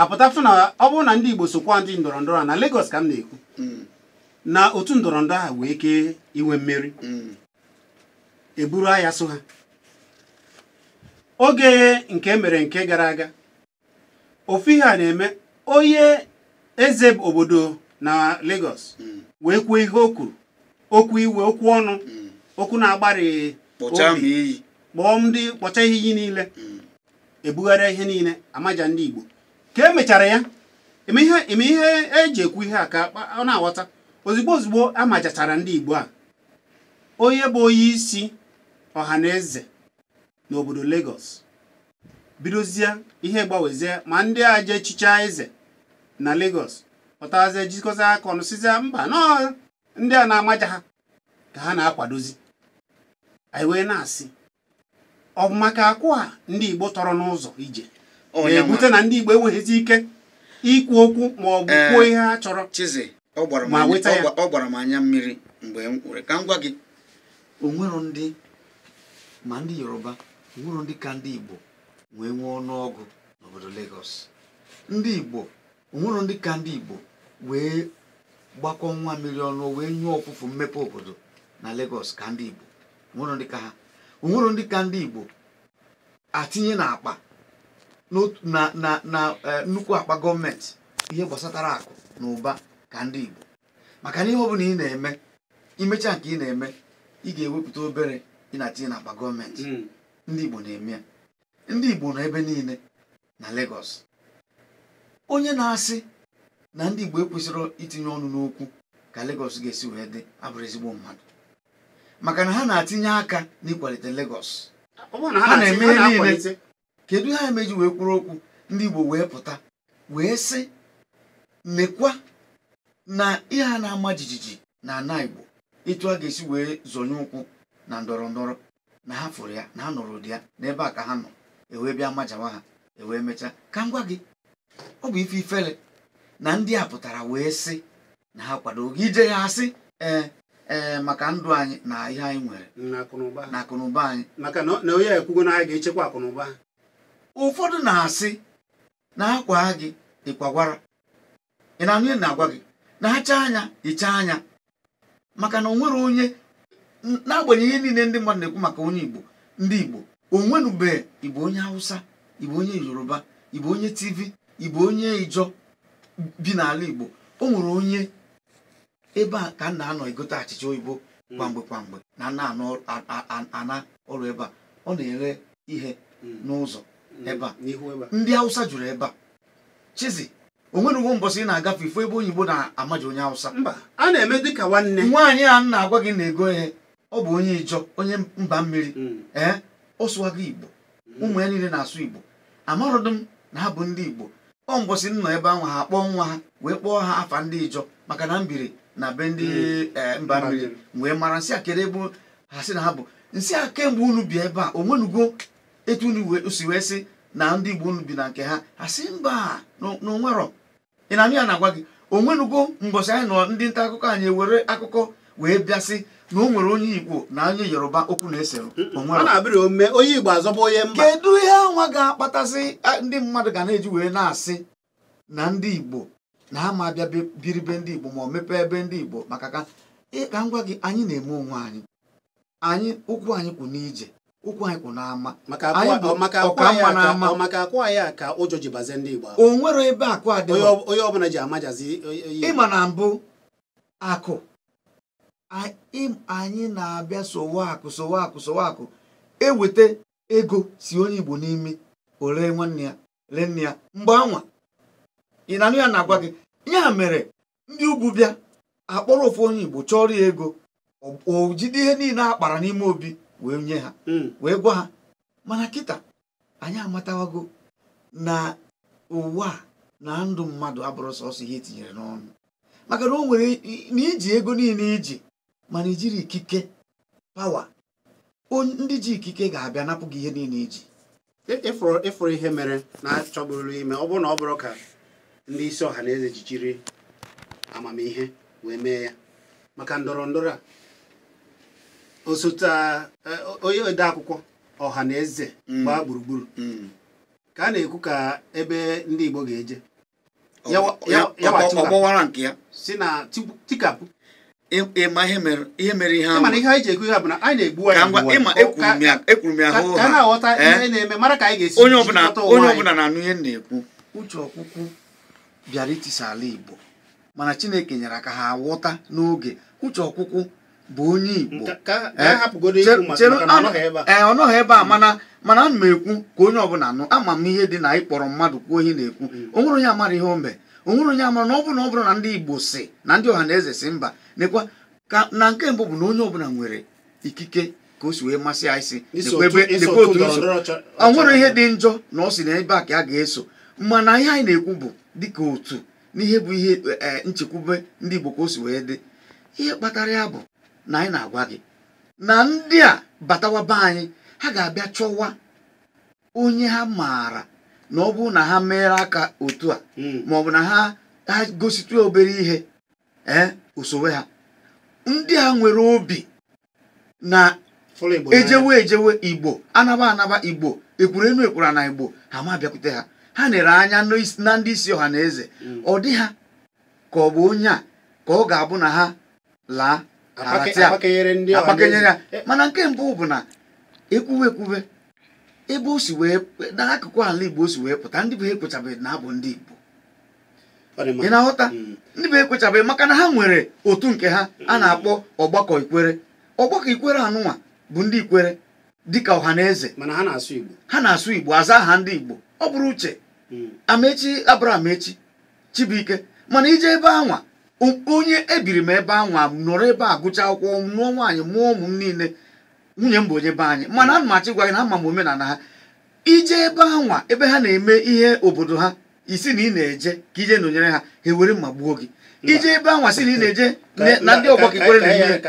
apụtafụ na ọ bụrụ na ndị Igbo sokwa ndị ndọrọ ndọrọ a na Lagos ka m na-ekwu hmm. na otu ndọrọndọrọ ha wee kee inwe mmeri mm. eburu agha so ha oge nke e mere nke gara aga ofu ihe a na-eme onye eze obodo na Lagos mm. wee kwuo ihe o mm. okwu iwe okwu ọnụ okwu na agbari obi kpọọ ndị kpọcha ihe iyi niile ebugharịa ihe niile amaja ndị Igbo ka emechara ya eme ihe eji e ekwu ihe a ka ọ na-aghọta ozugbo ozugbo a majachara ndị Igbo a onye bụ onye isi ọha na eze n'obodo Lagos bidozie ihe gbanwezie ma ndị a je echicha eze na Lagos pụtazie jikọta aka ọnụ mba nọ ndị a na-amaja ha ka ha na-akwadozi anyị wee na-asị ọ bụ maka akwụ a ndị Igbo tọrọ n'ụzọ ije na-ebute na ndị Igbo enweghịzi ike ikwu okwu ma ọ bụ kwuo ihe ha chọrọ ọ gbara m anya mmiri mgbe m ka m gwa gị onwero ndị ma ndị yoruba onwero ndị ka ndị igbo wee nwee ọnụọgụ n'obodo Lagos ndị igbo onwero ndị ka ndị igbo wee gbakọ nwa mmiri ọnụ wee nyụọ ọpụpụ mmepe obodo na Lagos ka ndị igbo onwero ndị ka ha onwero ndị ka ndị igbo atinye na akpa na eh, nnukwu akpa gọọmenti ihe gbasatara akụ na ụba ka ndị Igbo maka na ihe ọ bụla ị na-eme imecha nke ị na-eme ị ga-ewepụta obere ị na akpa gọọmenti hmm. ndị Igbo na-eme ya ndị Igbo nọ ebe niile na Lagos onye na-asị na ndị Igbo ekwesịrị itinye ọnụ n'okwu ka Lagos ga-esi wee dị abụrụ ezigbo mmadụ maka na ha na-atinye aka n'ịkwalite Lagos ha na-eme niile kedu ha emeji wee kwuru okwu ndị Igbo wee pụta wee sị lekwa na ihe a na-ama jijiji na ana igbo etu a ga-esi wee zonye ụkwụ na ndọrọ ndọrọ na ha fụrụ ya na ha nụrụ ụdị ya n'ebe a ka ha nọ ewee bịa majawa ha ewee mechaa ka m gị ọ bụ ife ifele na ndị a pụtara wee sị na ha kwado gị ije ya asị ee ee maka ndụ anyị na ihe anyị nwere na akụnụba anyị maka na onye ekwugo na anyị ga-echekwa akụnụba ụfọdụ na-asị na akwa gị ịkwagwara ị na-anụ na-agwa gị na acha anya icha anya maka na onwere onye n'agbanyeghị niile ndị mmadụ na-ekwu maka onye igbo ndị igbo onwenube igbo onye hausa igbo onye yoruba igbo onye tv igbo onye ijo bi n'ala igbo o nwere onye ebe a ka nna na-anọ egote achịcha oyibo mm. kwamgbe kwamgbe na ana ọrụ ebe a ọ na-ere ihe mm. n'ụzọ mm. ebe a ndị hausa juru ebe a chizi onwere uwe mbọsị ị na-agafe ifo ebe oyibo na-amaji onye awụsa mba a na-eme dịka nwanne nwaanyị a na-agwa gị na-ego ya ọ bụ onye ijọ onye mba mmiri mm. ee ọ sụwago igbo mm. ụmụ ya niile na-asụ igbo amarụdị m na ha bụ ndị igbo ọ mbọsị m nọ ebe ahụ ha kpọọ nwa ha wee kpọọ ha afa ndị ijọ maka na mbiri na be ndị mm. eh, mba mmiri wee mara nsị ebe ha sị na ha bụ nsị a kemgbe unu bi ebe a onwenugo etu unu si wee sị na ndị igbo unu bi na nke ha ha sị mba na onwerọ ị na amị ya na-agwa gị onwenugo mbọchị anyị nọ ndị nta akụkọ anyị were akụkọ wee bịasị na o nwere onye igbo na anyị yoruba okwu na-esere onye igbo azọba onye mba kedu ihe anwa ga-akpatasị ndị mmadụ ga na-eji wee na-asị na ndị igbo na ama bịa biri be ndị igbo ma ọ mepee ebe ndị igbo maka ka ịka ngwa gị anyị na-eme onwe anyị anyị ụkwụ anyị kwụ n'ije ụkwụ anyị kwụ n'ama maka akwa ya ka ụjọ ji bazie ndị Igbo o nwere ebe akụ adị onye ọbụla ji amajazi ịma na mbụ akụ anyị na-abịa sowe akụ sowe akụ sowe akụ eweta ego si onye Igbo n'imi ole nwanne ya ree nne ya mgbe anwa ị na-anụ ya na-agwa gị ya mere ndị ugwu bịa akpọrọ ofu onye Igbo chọrọ ya ego o jide ihe niile a kpara n'ime obi wee nye ha hmm. wee gwa ha mana kịta anyị amatawago na ụwa na ndụ mmadụ abụrụ sọsọ ihe etinyere n'ọnụ maka na o nwere na iji ego niile iji mana ijiri ikike pawa ndị ji ikike ga-abịa napụ gị ihe niile iji ịfụrụ ihe mere na-achọbụrụ ime ọ bụrụ na ọ bụrụ ka ndị isi ọha na eze amamihe wee mee ya maka ndọrọ ndọrọ a osote eh, onye odeakwụkwọ ọha na eze mm. gbaa gburugburu mm. ka a na-ekwu ka ebe ndị Igbo ga-eje Ọgbọwara nke ya. si na tikapụ ma ihe mere ihe ahụ ihe anyị ji ekwu ihe bụ na anyị na-egbu anyị ekwuru m ya hụ ha na-aghọta eh? ihe na-eme mara ka anyị ga-esi onye ọbụla na-anụ ihe na-ekwu uche ọkwụkwụ bịara itisa ala Igbo mana Chineke nyere aka ha ghọta n'oge uche ọkwụkwụ bụ onye Igbo ee ọ nọghị ebe a mana mana ana m ekwu ka onye ọbụla nụ ama m ihe dị na ịkpọrọ mmadụ kwuo ihe na-ekwu mm. onwere onye amara ihe ombe onwere onye amara na ọ bụrụ na ọ bụrụ na ndị Igbo si na ndị ọha na eze si mba nekwa ka na nke mbụ bụ na onye ọbụla nwere ikike ka o si wee masị ya isi o nwere ihe dị njọ na ọ si na ebe a ka a ga-eso mana ihe anyị na-ekwu bụ dịka otu n'ihe bụ ihe eh, nchekwube ndị Igbo ka o si wee dị ihe kpatara ya bụ na anyị na-agwa gị na ndị a batawa be anyị ha ga-abịa chọwa onye ha maara na ọ bụ na ha meere aka otu a hmm. ma ọ bụ na ha ha gositụ obere ihe ee osowe ha ndị a nwere obi na ejewe ejewe igbo anaba anaba igbo ekwuru enu ekwura na igbo ha ma bịakwute ha ha nere anya na ndị isi ọha na eze hmm. ọ dị ha ka ọ bụ onye a ka ọ ga-abụ na ha laa Eh, mana nke mbụ bụ na ekwuwe ekwuwe ebe o si wee n'akụkụ ala igbo o si wee pụta ndị bụ ekwechabeghị na abụ hmm. ndị igbo ị na-aghọta ndị bụ ekwechabeghị maka na ha nwere otu nke ha hmm. a na-akpọ ọgbakọ ikwere ọgbakọ ikwere anụnwa bụ ndị ikwere dịka ọha na eze mana ha na-asụ igbo ha na-asụ igbo aza aha ndị igbo ọ bụrụ uche hmm. amechi abụrụ amechi Chibuike mana ije ebe anwa onye ebiri m ebe anwa m nọrọ ebe a gụcha akwụkwọ mụọ nwaanyị mụọ ụmụ m niile nwunye m bụ onye be anyị mana ana m achọ ịgwa gị na ama m omenala ha ije ebe anwa ebe ha na-eme ihe obodo ha isi na ị na-eje ka ije nọnyere ha ha ewere mma gbuo gị ije ebe anwa si na ị na-eje na ndị ọgbọ ka ikwere na ihe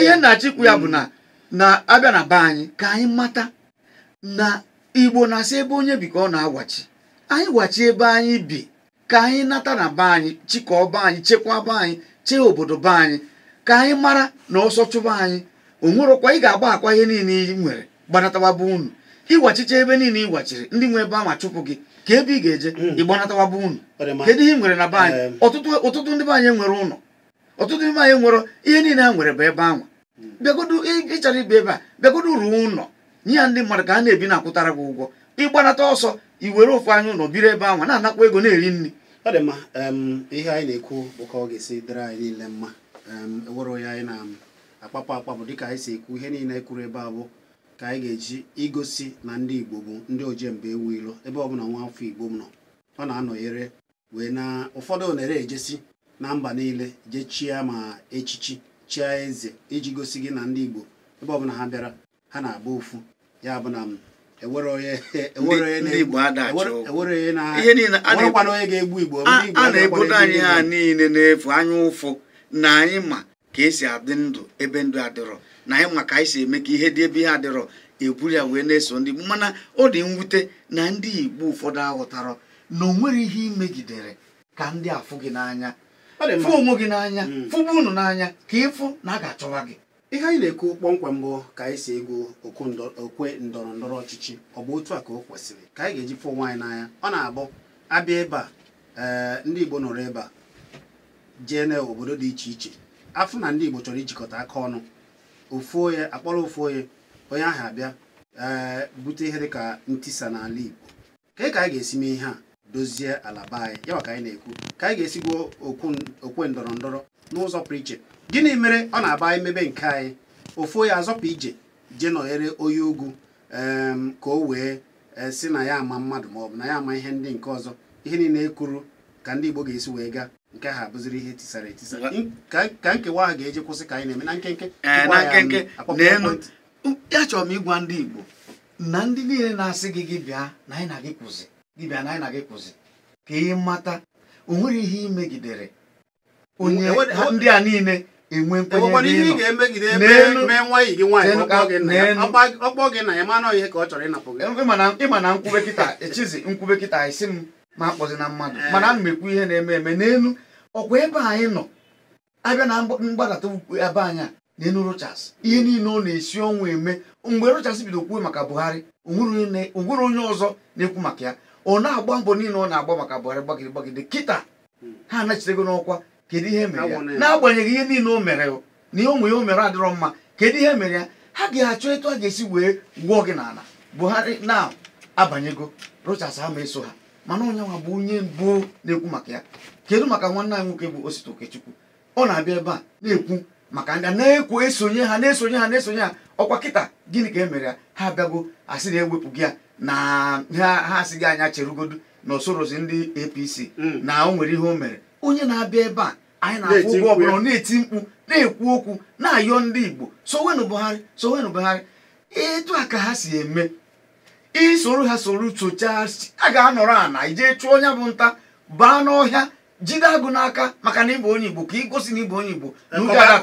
ihe e, na-achịkwu ya bụ na mm. na-abịa na be anyị ka anyị mata na igbo na-asị ebe onye bi ka ọ na-agwachi anyị gwachi ebe anyị bi ka anyị nata na be anyị chịkọọ be anyị chekwaa be anyị chee obodo be anyị ka anyị mara na ọsọ chụba anyị onwerokwa ị ga-agba akwa ihe niile ị nwere gbanatawabe unu ịgwachicha ebe niile ị gwachiri ndị nwe ebe anwa chụpụ gị ka ebe ị ga-eje hmm. ịgbanatawabe unu kedu ihe nwere na be anyị ọtụtụ ndị be anyị nwere ụlọ ọtụtụ ndị be anyị nwere ihe niile a nwere bụ ebe anwa hmm. bịagodu ịchara ibe ebe a bịagodo ruo ụlọ nye ya ndị mmadụ ka a na-ebi na akwụtara gị ụgwọ ịgbanata ọsọ i were ofu anya ụlọ biri ebe ahụ na-anakwa ego na-eri nri ọ dị mma ihe anyị na-ekwu bụ ka ọ ga-esi dịrị anyị niile mma ewere onye anyị na-akpapụ akpapụ dịka anyị si ekwu ihe niile kwuru ebe abụ ka anyị ga-eji igosi na ndị Igbo bụ ndị ojemba ewu ilo ebe ọbụla nwa afọ Igbo nọ ọ na-anọnyere wee na ụfọdụ onere ejesi na mba niile jee chịa ma echichi chia eze iji gosi gị na ndị Igbo ebe ọbụla ha bịara ha na-agba ofu ya bụ na a na-ebodo anyị ha niile n'efu anya ụfụ na anyị ma ka esi adị ndụ ebe ndụ adịrọ na anyị ma ka anyị si eme ka ihe dị ebe ihe adịrọ eburu ya wee na-eso ndị mana ọ dị mwute na ndị Igbo ụfọdụ aghọtara na o nwere ihe imegidere ka ndị afụ gị n'anya fụ onwe gị n'anya hmm. fụgbu unu n'anya ka ịfụ na a ga-achọwa gị ihe anyị na-ekwu kpọmkwem bụ ka anyị si egwu okwe ndọrọ ndọrọ ọchịchị ọ bụ otu a ka o kwesịrị ka anyị ga-eji fụ nwaanyị n'anya ọ na-abụ abịa ebe a ee eh, ndị Igbo nọrọ ebe a jee na obodo dị iche iche afọ na ndị Igbo chọrọ ijikọta aka ọnụ ofu onye akpọrọ ofu onye onye ahụ abịa ee eh, bute ihe dịka ntisa n'ala Igbo ka ka anyị ga-esi mee ihe a dozie ala be anyị ya ka anyị na-ekwu ka anyị ga-esigwo okwe ndọrọ ndọrọ n'ụzọ pụrụ iche gịnị mere ọ na-aba anyị mebe nke anyị ofu ya azọpụ ije jee nọghere onye ugwu ka o wee e, si na ya ama mmadụ ma ọ bụ na ya ama ihe ndị nke ọzọ ihe niile e kwuru ka ndị Igbo ga-esi wee gaa nke ha abụziri ihe tisara etisa ka nkewa ahụ ga-eji kwụsị ka anyị na-eme na nkenke eh, ya chọrọ m ịgwa ndị Igbo na ndị niile na-asị gị gị bịa na anyị na gị kwụzi gị bịa na anyị na gị kwụzi ka ị mata o nwere ihe imegidere onye ndị a niile enwe nkwenye ịma na nkwube kịta echizi nkwube kịta isi m ma akpọzi na mmadụ eh. mana m mekwu ihe na-eme eme n'elu ọkwa ebe anyị nọ abịa na mgbadata ebe anyị a n'elu Rochas ihe niile ọ na-esi ọnwụ eme mgbe Rochas bido kwuo maka Buhari onwere onye ọzọ na-ekwu maka ya ọ na-agba mbọ niile ọ na-agba maka Buhari gbagide gbagide kịta ha anachitego n'ọkwa kedu ihe mere ya n'agbanyeghị ihe niile o mere na ihe ụmụ ya o mere adịrọ mma kedu ihe mere ya ha ga-achọ etu a ga-esi wee gwụọ gị n'ala buhari na abanyego rochas ama eso ha mana onye nwa bụ onye mbụ na-ekwu maka ya kedu maka nwanne anyị nwoke bụ Osita Okechukwu ọ na-abịa ebe a na-ekwu maka ndị na-ekwu esonye ha na-esonye ha na-esonye ha ọkwa kịta gịnị ka e mere ya ha abịago asị na-ewepụ gị ya na ha asị gị anya cherugodu na osorozi ndị APC mm. na o nwere ihe o mere onye na-abịa ebe a anyị na-akwụ ụgwọ ọbụla na-eti mkpu na-ekwu okwu na-ayọ ndị Igbo sowenụ Buhari sowenụ Buhari etu a ka ha si eme isoro ha soro sochaa a ga-anọrọ ana ijee chụọ onye bụ nta baa n'ọhịa jide agụ n'aka maka na ịbụ onye Igbo ka ịgosi na ịbụ onye Igbo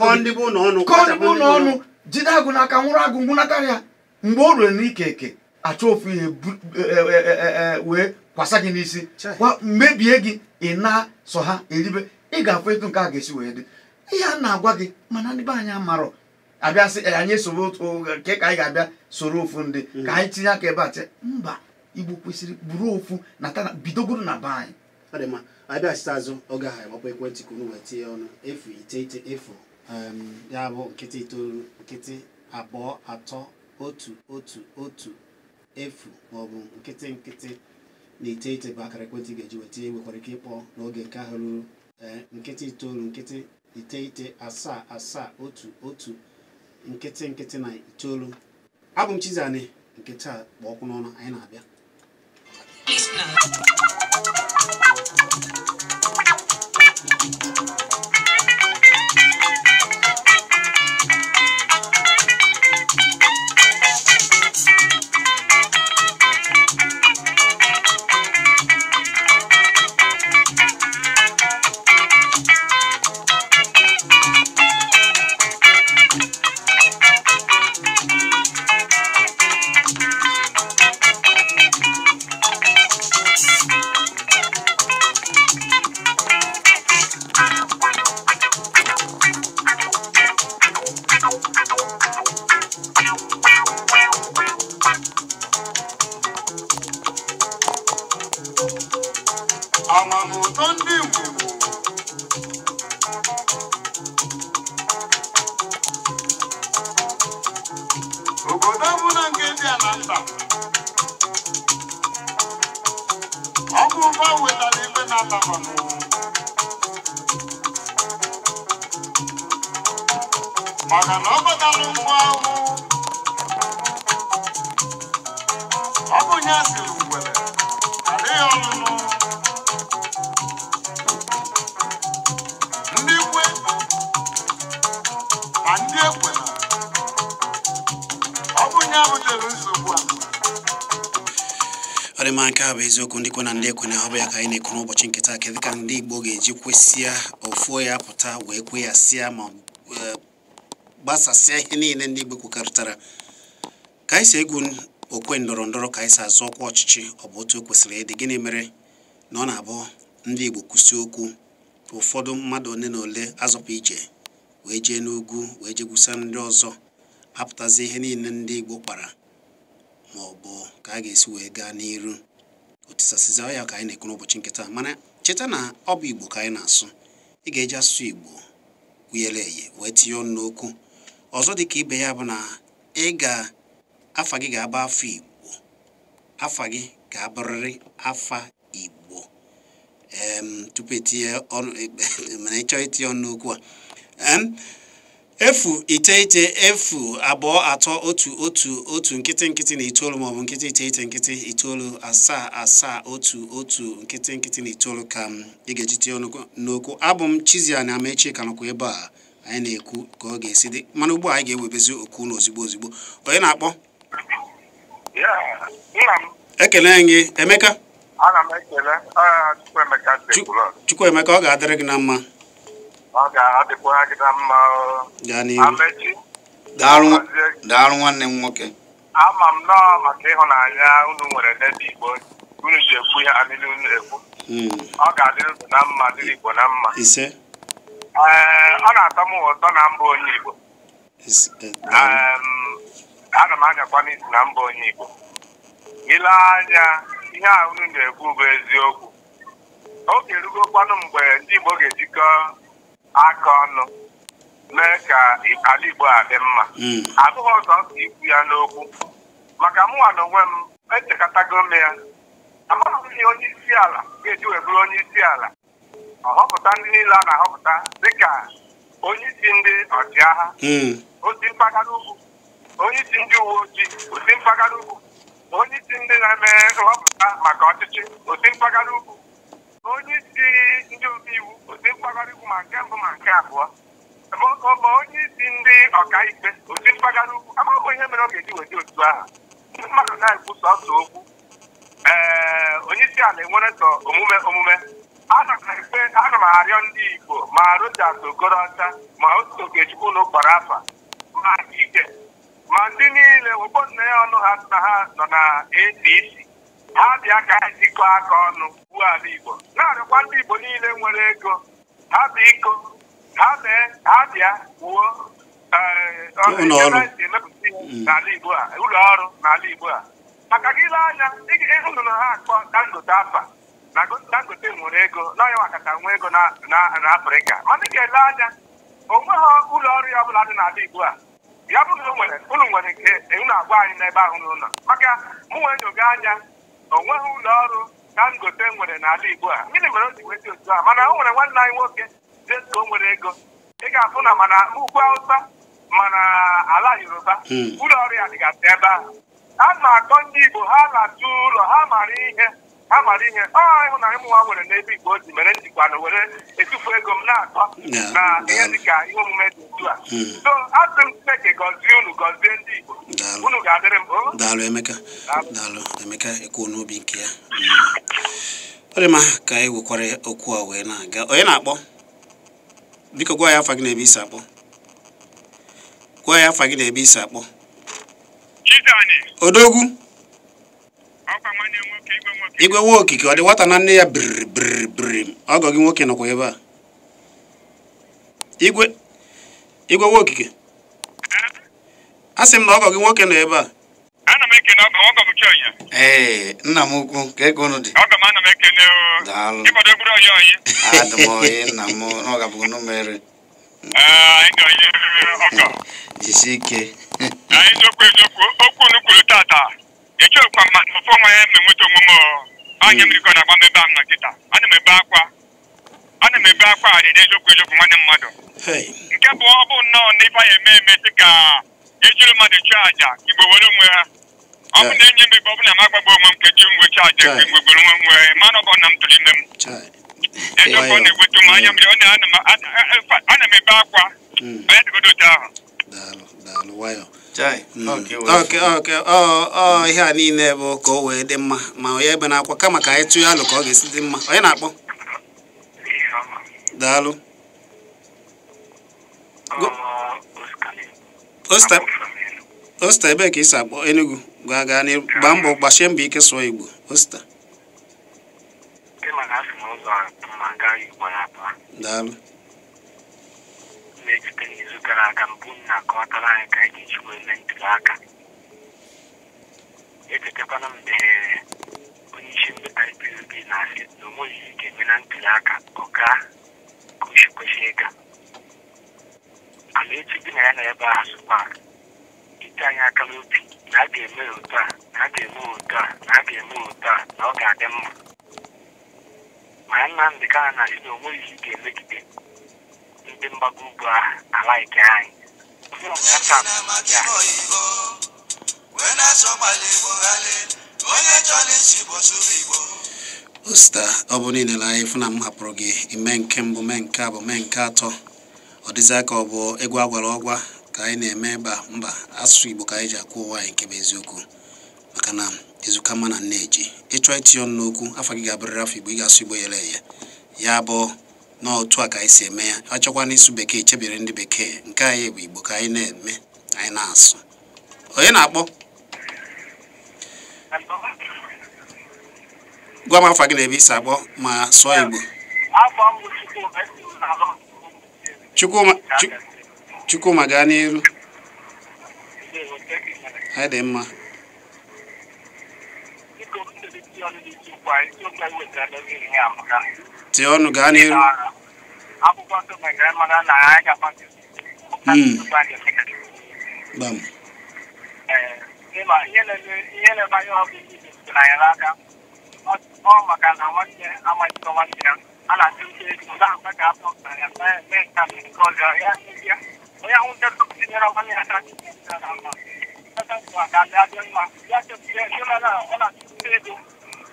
kọọ ndị bụ ụlọ ọnụ jide agụ n'aka nwụrụ agụ ngwụnatara ya mgbe o ruru n'ike eke achọ ofu ihe e, e, e, wee kwasa gị n'isi mebie gị ị na sọ ha eribe ị ga-afụ etu nke a ga-esi wee dị ihe a na-agwa gị mana ndị be anyị amarọ abịa sị anyị soro nke ka anyị ga-abịa soro ofu ndị mm. ka anyị tinye aka ebe a che mba igbo kwesịrị buru ofu na bidogoro na be anyị abịa site azụ oge ahụ agbapụ ekwentị ka unu wee tinye ọnụ efu iteghete efu ya bụ nkịtị itoolu nkịtị abụọ atọ otu otu otu efu maọbụ nkịtị nkịtị na iteghete bụ akara ekwentị ga-eji weta nwekwara ike ịkpọ n'oge nke ahụ ruru eh, nkịtị itoolu nkịtị iteghete asaa asaa otu otu nkịtị nkịtị na itoolu abụ m Chizani nkịtị a kpọ ọkụ n'ọnụ anyị na-abịa bụ eziokwu ndị na ndị ekwe na-ahụ ya ka anyị na-ekwu n'ụbọchị nke kedụ ka ndị Igbo ga-eji kwesịa ofuo ya pụta wee kwe ya sịa ma e, gbasasịa ihe niile ndị Igbo kwekọrịtara ka anyị si egwu okwe ndọrọ ndọrọ ka anyị si azụ ọkwa ọchịchị ọ bụ otu o kwesịrị ịdị gịnị mere na ọ na-abụ ndị Igbo kwụsị okwu ụfọdụ mmadụ ole na ole azọpụ ije wee jee n'ugwu wee jee gwusa ndị ọzọ apụtazi ihe niile ndị Igbo kpara ma ọ bụ ka a ga-esi wee gaa n'iru tisasizi ya ka anyị na-ekwu n'ụbọchị nkịta mana cheta na ọ bụ igbo ka anyị na-asụ ị ga-eji asụ igbo wuyere eye wee tinye ọnụ n'okwu ọzọ dị ka ibe ya bụ na ị ga-afa gị ga-aba afọ igbo afa gị ga-abụrịrị afa igbo tupu etinye ọnụ e, e, ịchọọ itinye ọnụ n'okwu a efu iteghete efu abụọ atọ otu otu otu nkịtị nkịtị na itoolu maọbụ nkịtị iteghete nkịtị itoolu asaa asaa otu otu nkịtị nkịtị na itoolu ka ị ga-ejite n'okwu abụ m Chizzy Ani Amaechi ka ebe a anyị na-ekwu ka ọ ga-esi dị mana ugbu a anyị ga-ewebezi okwu na ozigbo onye na-akpọ ekele gị Emeka ah, Chukwuemeka ọ ga-adịrị gị na mma ọ ga-adịkwagịda mma amechi daalụ nwanne m nwoke ama m nọọ maka ịhụnanya unu nwere n'ebe igbo unu ji ekwu ihe ha niile unu ekwu hmm. ọ ga-adịrị unu na mma dịrị igbo na mma ee ọ na-atọ m ụtọ na mba onye igbo e, ana m anyakwa n'isi na mba onye igbo ile anya ihe a unu na-ekwu bụ eziokwu oge erugokwanụ mgbe ndị igbo ga-ejikọ aka ọnụ mee ka ala Igbo a dị mma hmm. abụghị ọzọ ikwu ya n'okwu maka mụnwa na onwe m echekọtago m ya amaghị onye isi ala ga-eji wee bụrụ onye isi ala ọhọpụta ndị niile a na-ahọpụta dịka onye isi ndị ọchịagha hmm. osi mpaghara ugwu onye isi ndị uwe ojii osi mpaghara ugwu onye isi ndị na-eme nhọpụta maka ọchịchị osi mpaghara ugwu onye isi ndị omeiwu ndị mpaghara ugwu ma nke mbụ ma nke abụọ ma onye isi ndị ọkaikpe otu mpaghara ugwu amaghị ihe mere ọ ga-eji weta otu ahụ ndị mmadụ na ekwusa sọsọ okwu ee onye isi ala enwere sọ omume omume ana m arịọ ndị igbo ma rojas okorocha ma otu okechukwu na ụkpara afa ma ike ma ndị niile ụgbọ nne ya ọnụ ha na ha nọ na apc ha bịa ka anyị jikọọ aka ọnụ nsogbu ala Igbo na-arịọkwa ndị Igbo niile nwere ego ha iko ha mee ha bịa wuo eh, n'ala Igbo a ụlọ ọrụ n'ala Igbo a maka gị ile anya ịhụrụ na ha akpọ Dangote afa na Dangote nwere ego n'anya makata ego na Afrịka mana ị ga-ele anya onwe ha ụlọ ọrụ ya ọbụla dị n'ala Igbo a ya bụrụ na ụlọ nwere nke unu agwa anyị n'ebe ahụ n'ụlọ maka mụ nwee nyoga anya onweghị ụlọ ọrụ kangote nwere n'ala Igbo a gịnị mere o ji nweta otu a mana o nwere nwanne anyị nwoke jesko o nwere ego ị ga-afụ na mana ugwu Hausa mana ala Yoruba ụlọ hmm. ọrụ ya dịgasị ebe ahụ a na-akọ ndị Igbo ha na-atụ ụlọ ha mara ihe ha mara ihe ọ na ụmụ nwa nwere n'ebe igbo ji mere njikwa na were etufu ego m na-atọ na ihe dịka ihe omume dị otu a hmm. so asị m Chineke gọzie unu gọzie ndị igbo unu ga-adịrị m oh. daalụ Emeka daalụ Emeka ekwuo n'obi nke ya hmm. ọ dị mma ka anyị wekwara okwu a wee na-aga onye na-akpọ biko gwa ya afa gị na-ebe isi akpọ gwa ya afa gị na-ebe isi akpọ odogwu igwe nwa okike ọ dị nwata na nne ya biriri ọgọ gị nwoke nọkwa ebe a igwe igwe nwa okike a sị m na ọgọ gị nwoke nọ ebe a ee nna m ukwu ka ego unu dị daalụ m oyi nna m n'ọgabụghị numere jisie ike okwu unu tata kwa ma ọfọ nwa ya ma enweta onwe anya mmiri ka na-agba m ebe ahụ na nkịta ana m ebe akwa ana m ebe akwa adịdị eziokwu eziokwu nwanne mmadụ nke bụ ọ bụ nnọọ na ife anyị eme eme sị ka ejiri mmadụ chụọ àjà igbo were onwe ha ọ bụ na enye m ebe ọ bụ na ma gba onwe m nkeji mgbe chụọ àjà mgbe mgbe gbere onwe nwe na m ime m ọ na ebe akwa hmm. ahụ daalụ daalụ nwayọ mm. ọ ihe a niile bụ ka o wee dị mma ma onye ebe na-akwa kama ka anyị tụọ alụ ka ọ ga-esi dị mma onye na-akpọ daalụ osta ebee ka isi akpọ Enugu gaa gaa gbaa mbọ gbasie mbọ ike sụọ Igbo osta daalụ eji site n'izu gara aga mbụ na akọwatara anyị ka anyị ga-eji wee mee ntuli aka echetakwana mgbe onye isi mmeta na-asị na o nweghị eme na ntuli aka ọ gaa ịga ala echi dị na ya na ebe anyị aka na a ga-eme otu a na a ga-eme ya otu a na a ga-eme ya otu a na ọ ga-adị mma ma ya Nnamdị ka na na ndị mgbago ugwu ahụ anyị osta ọ bụ niile na anyị fụna m hapụrụ gị ime nke mbụ mee nke abụ mee nke atọ ọ dịzị ka ọ bụ egwu agwara ọgwa ka anyị na-eme ba mba asụsụ igbo ka anyị ji akwụ ụwa anyị nke bụ eziokwu maka na ezuka ma na nneji ịchọ itinye ọnụ n'okwu afọ gị ga abụrịrị afọ igbo ị ga-asụ igbo yere eye ya bụ na otu a ka anyị si eme ya achọkwa n'isu bekee chebere ndị bekee nke anyị bụ igbo ka anyị na-eme anyị na-asụ onye na-akpọ gwa m afa gị na ebe isi akpọ ma sụọ igbo chukwuma e gaa n'iru anyị dị mma Teonu Ganir. Abubuwa to my grandmother na I can find you. Bam. ihe na-ebanye ọgụ isi na ya n'aka ọ maka na nwanne amaghị nwanne ya a na-atụ uche ego na-akpa ka afọ pụtara ya mee nka nke ọzọ ya ya onye ahụ ndị ọzọ tinyere nwanne ya aka na mma ya ka ndị adị mma ya chekwuye ndị ọ na-atụ uche ego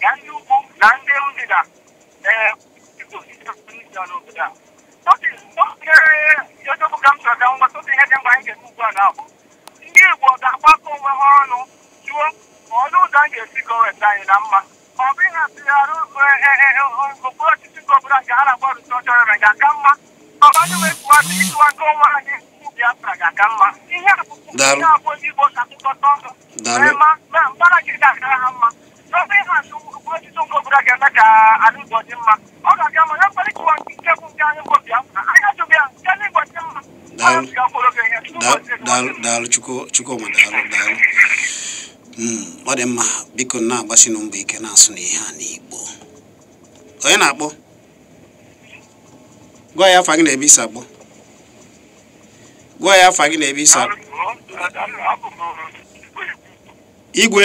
na ndị ugwu na ndị ndịda a ndị Igbo ga-agbakọ onwe ha ọnụ jụọ ma ọnụ ụzọ ga-esi anyị na mma ma ọ bụ ihe atụgharị okpuru ọchịchị nke ọbụla nke ha na-agba rụsi ọchọrọ na ga-aka mma ọ bụ anyị wepụwadị nke onwe anyị ga-aka mma ihe abụọ ndị Igbo na gị ga-akara ha mma ọtụtụ nke obodo ga-eme ka ala Igbo dị mma ọ ga-aga ma ya mkparịta ụwa nke nke bụ nke anyị mbụ bịa anyị achọghị ya nke ala Igbo dị mma daalụ daalụ daalụ hmm, ọ dị mma biko na-agbasi na ike na-asụ na ihe a n'Igbo onye na-akpọ gwa ya afa gị na ebe isi akpọ gwa ya afa gị na ebe isi akpọ igwe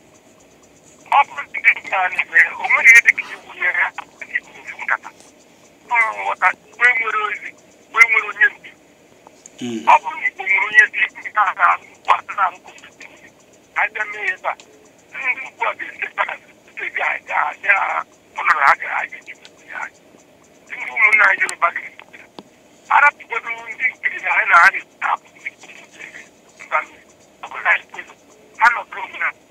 ọ bụrụ o nwere dị iwu nye ọ bụrụ na nwere onye ndị ugbu a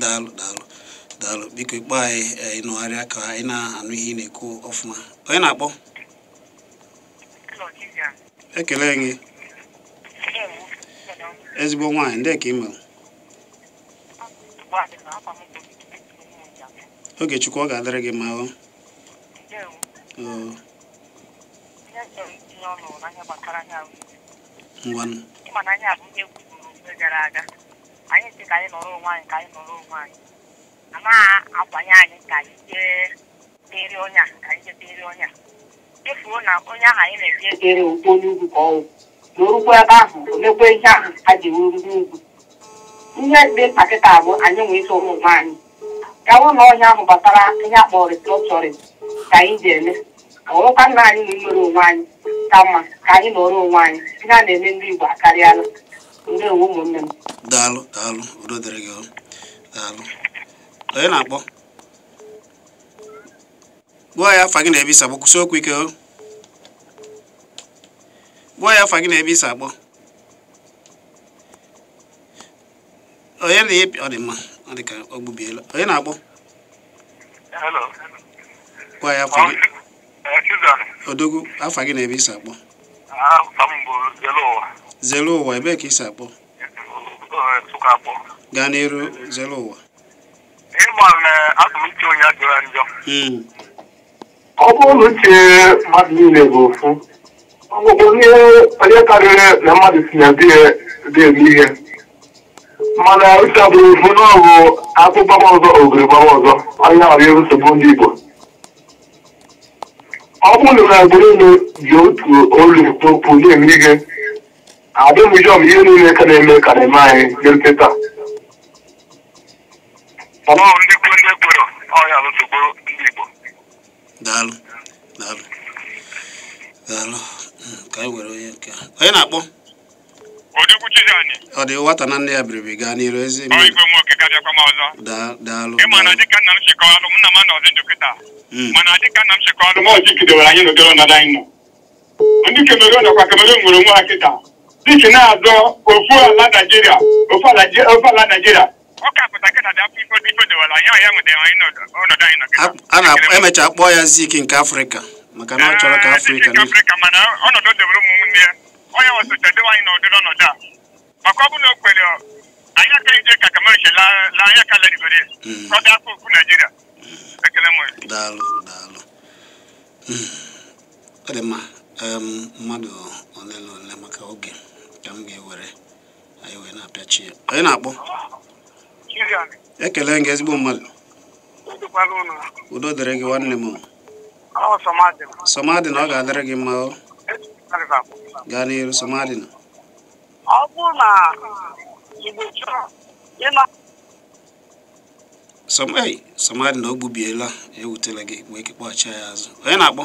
daalụ daalụ daalụ biko ikpe anyị ịnụgharịa ka anyị na-anụ ihe ị na-ekwu ọfụma onye na-akpọ ekele e, e, gị ezigbo nwaanyị ndị ka ị mere oge chukwu ọ ga-adịrị gị ma ọ ngwanụ gara aga anyị si ka anyị nọrọ onwe anyị ka anyị nọrọ onwe anyị amaghị akwanye anyị ka anyị jee deri ọnya ka anyị jee deri ọnya efuo na onye ahụ anyị na-eji ejere ụgbọ ugwu ka ọnwụ na orukwa ebe ahụ mekwa ihe ahụ a ji wuru n'ugwu. ihe dị mkpa kịta bụ anyị nwee isi ụmụ anyị gawa na ọhịa ahụ batara ihe akpọrọ restrọtọrin ka anyị ji eme ka ọrụkwa nna anyị na imere onwe anyị ka mma ka anyị nọrọ onwe anyị ihe a na-eme ndị Igbo akarịala ndewo ụmụnne m daalụ daalụ udo dịrị gị daalụ onye na-akpọ gbuo ya afa gị na-ebe isi akpọ okwu ike o gbuo ya afa gị na-ebe isi akpọ onye na ọ dị mma ọ dị ka ọ gbubiela onye na-akpọ gwa ya afa gị odogwu afa gị na-ebe isi akpọ zere ụwa ebe ka isi akpọ gaa n'iru zere ụwa ịgba atụmịche onye jọrọ njọ hmm. ọ bụrụ uche mmadụ niile bụ ofu ọgwụgwọ ihe onye karịrị na mmadụ si na dị-eme ihe mana uche bụrụ ofu n'ọgụ akpụ gbaba ọzọ ogiri gbaba ọzọ onye ọrụ nsogbu ndị Igbo ọ bụrụ na agbụrụ unu ji otu olu okwu na-eme ihe adịbụjọm ihe niile ka na-eme ka na-eme anyị rute taa ndị kwu ndị kwero ọhịa nsogbu ndị Igbo daalụ daalụ ka were onye nke onye na-akpọ ọ dị nwata na nne ya biriri gaa n'iru ezi daalụ dịka nna m nna m anọzi hmm. dịka nna m anyị ọnọdụ anyị nọ ndị nwere onwe ha kịta dịka na-azọ ofu ala naijiria ofu ala naijiria emecha kpọọ ya zik nke afrịka maka na ọ chọrọ ka afrịka onye wesotadịwa anyị n'ụdịrị ọnọdụ a maka ọ bụrụ na o kwere anyị aka ije ka kamerche la anya ka lerigore ka hmm. ọ dị afọ okwu naijiria hmm. ekele m daalụ daalụ hmm. ọ mmadụ ole na ole maka oge ka m ga-ewere anyị wee na ya onye na-akpọ ekele gị ezigbo mmadụ udo dịrị gị nwanne m somadina ọ ga-adịrị gị mma gaa n'iru somadina na ọ bụ na o gbubiela ewutela gị wee kekpọghachi ya azụ onye na-akpọ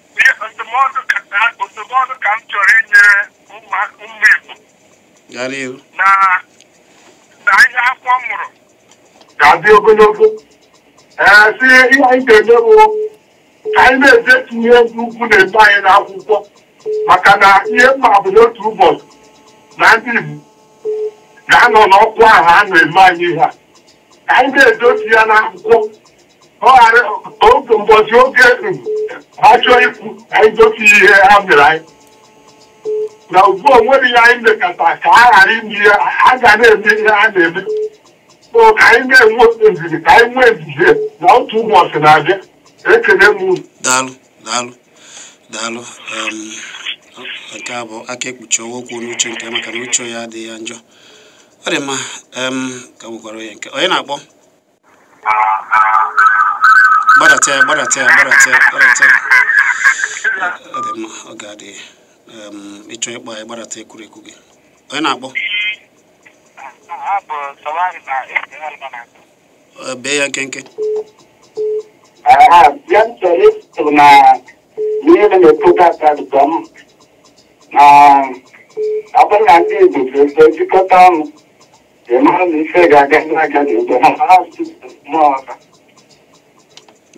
ndụmọdụ ka m chọrọ inyere ụmụ Igbo na ihe akwụkwọ mụrụ ga-adị ogologo e, si ihe anyị ga-eme bụ ka anyị na ihe ndị ugwu na eme anyị n'akwụkwọ maka na ihe mma bụ n'otu ụbọchị na ndị Igbo ga-anọ n'ọkwa ahụ a na-eme anyị ihe a ka anyị na-edotu ya n'akwụkwọ otu mbọchị oke ha chọọ ikwu anyị gosi ihe ha mere anyị na ugbu onwere ya anyị mekata ka a ghara ime ihe a ga na-eme ihe a na-eme o ka anyị na-enwe nzizi ka anyị nwee nzizi na otu ụbọchị na-abịa ekele m unu daalụ daalụ daalụ um, nke a bụ aka ekpuchi ọwa okwu n'uche nke maka na uche ya adịghị ya njọ ọ dị mma um, ka gbukwara onye nke onye na-akpọ gbadata ya gbadata ya gbadata gbadata ọ dị mma ọ ga-adị ịchọ ịkpọ ya gbadata ekwurekwu gị onye na-akpọ bee ya nkenke ọ bụrụ na ndị Igbo ga-eto ọnụ ga-aga na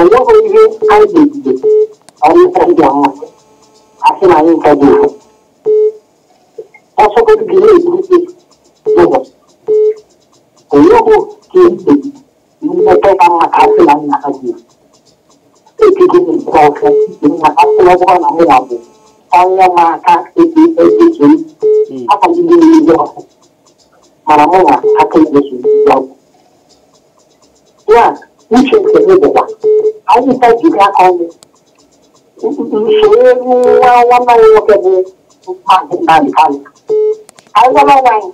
ọwọ́ orí káyọ̀dé ìdìbò àwọn ìtọ́jú àwọn àti àwọn ìtọ́jú ìfọ̀. ọ̀ṣọ́kọ́ ti gbìyànjú ìdíje lọ́wọ́ òyìnbó kì í dè nígbà tó bá máa káàsì láyé náà kájú. èkìtì ní ìgbà ọ̀fẹ́ ìgbìmọ̀ máa káàsì lọ́wọ́ náà ní ìwàbọ̀ ọ̀yọ́ máa ká ètè ẹgbẹ́ kiri ápàdé ní ìlú ọ̀fẹ́ màrà mọ́ra akẹ́kọ̀ọ́ sùn ìgbà ọ̀gbọ̀n. yá wíṣọ ìṣẹ̀lẹ̀ bọ̀ anyị na-eji aka ọnụ usoro nwa nwanne anyị nwoke bụ maazị Nnamdi Kanu anyị gwara nwa anyị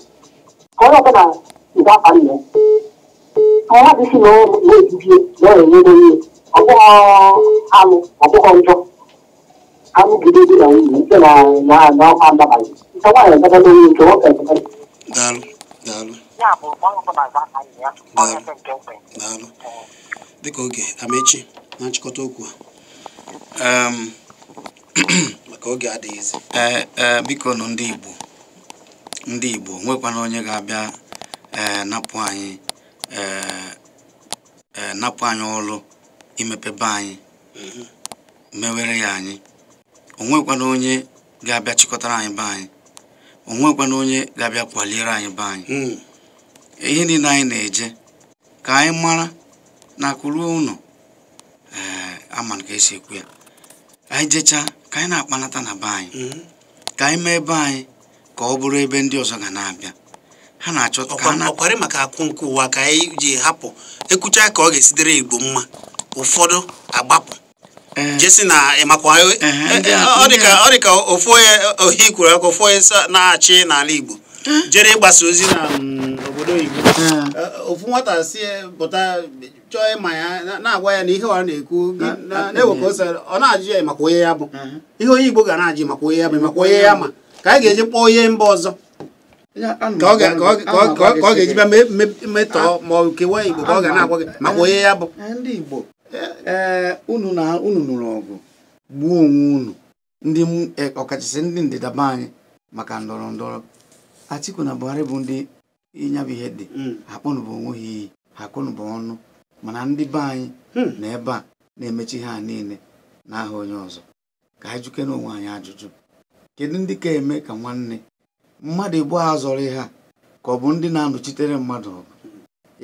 ka onye ọbụla nke abalị ya mmadụ si na na-ebibie na ọ na-enye ihe ọ bụghị anụ ọ bụghị njọ anụ gide dị na nwunye nke na na ọkwa ndabalị nke nwaanyị ebebe na onye nke nwoke ebebe daalụ daalụ daalụ dịka oge amechi na nchịkọta okwu a maka oge adịghịzi e, e, biko nọ ndị Igbo ndị Igbo nwekwana onye ga-abịa e, napụ anyị napụ anyị ọrụ imepebe anyị mhm. mewere ya anyị onwekwana onye ga-abịa chịkọtara anyị be anyị onwekwana onye ga-abịa kwaliere anyị be anyị hmm. ihe niile anyị na-eje ka anyị mara na akụruo ama ka esi ekwu ya anyị jechaa ka anyị na-akpanata na be anyị mhm. ka anyị mee ebe anyị ka ọ bụrụ ebe ndị ọzọ ga na-abịa ha na-achọta ka ọkwarị maka akwụ nke ụwa ka anyị ji hapụ ekwucha ka ọ ga-esi dịrị igbo mma ụfọdụ agbapụ e, jesi na ịmakwa e, e, ọ dị ka ofu onye ohi kwuru aka ofu onye na-achị n'ala igbo jere ịgbasa ozi na mm, obodo igbo ofu nwata si pụta chọọ ịma ya na-agwa ya na ihe ọ na-ekwu na-ewekọ ose ọ na-ajụ ya maka onye ya bụ uh-huh. ihe onye Igbo ga na-ajụ maka onye ya bụ maka onye ya ma ka anyị ga-eji kpọọ onye mba ọzọ ka ọ ga-eji bịa metọọ ah, ma kewa Igbo ka ọ ga na-agwa gị maka onye ya bụ eh, eh, ndị Igbo eh. unu na unu nụrụ ọgụ gbuo onwe unu ndị ọkachasị ndị ndịda be anyị maka ndọrọ ndọrọ Atiku na Buhari bụ ndị ịnyabụ ihe dị mm. akpọnụbụ onwe ha iyi ha akpọnụbụ ọnụ mana ndị be anyị hmm. na ebe a na-emechi ha niile na aha onye ọzọ ka anyị juke onwe anyị ajụjụ kedu ndị ka eme ka nwanne mmadụ igbo a zọrọ ha ka ọ bụ ndị na-anọchitere mmadụ ọgụ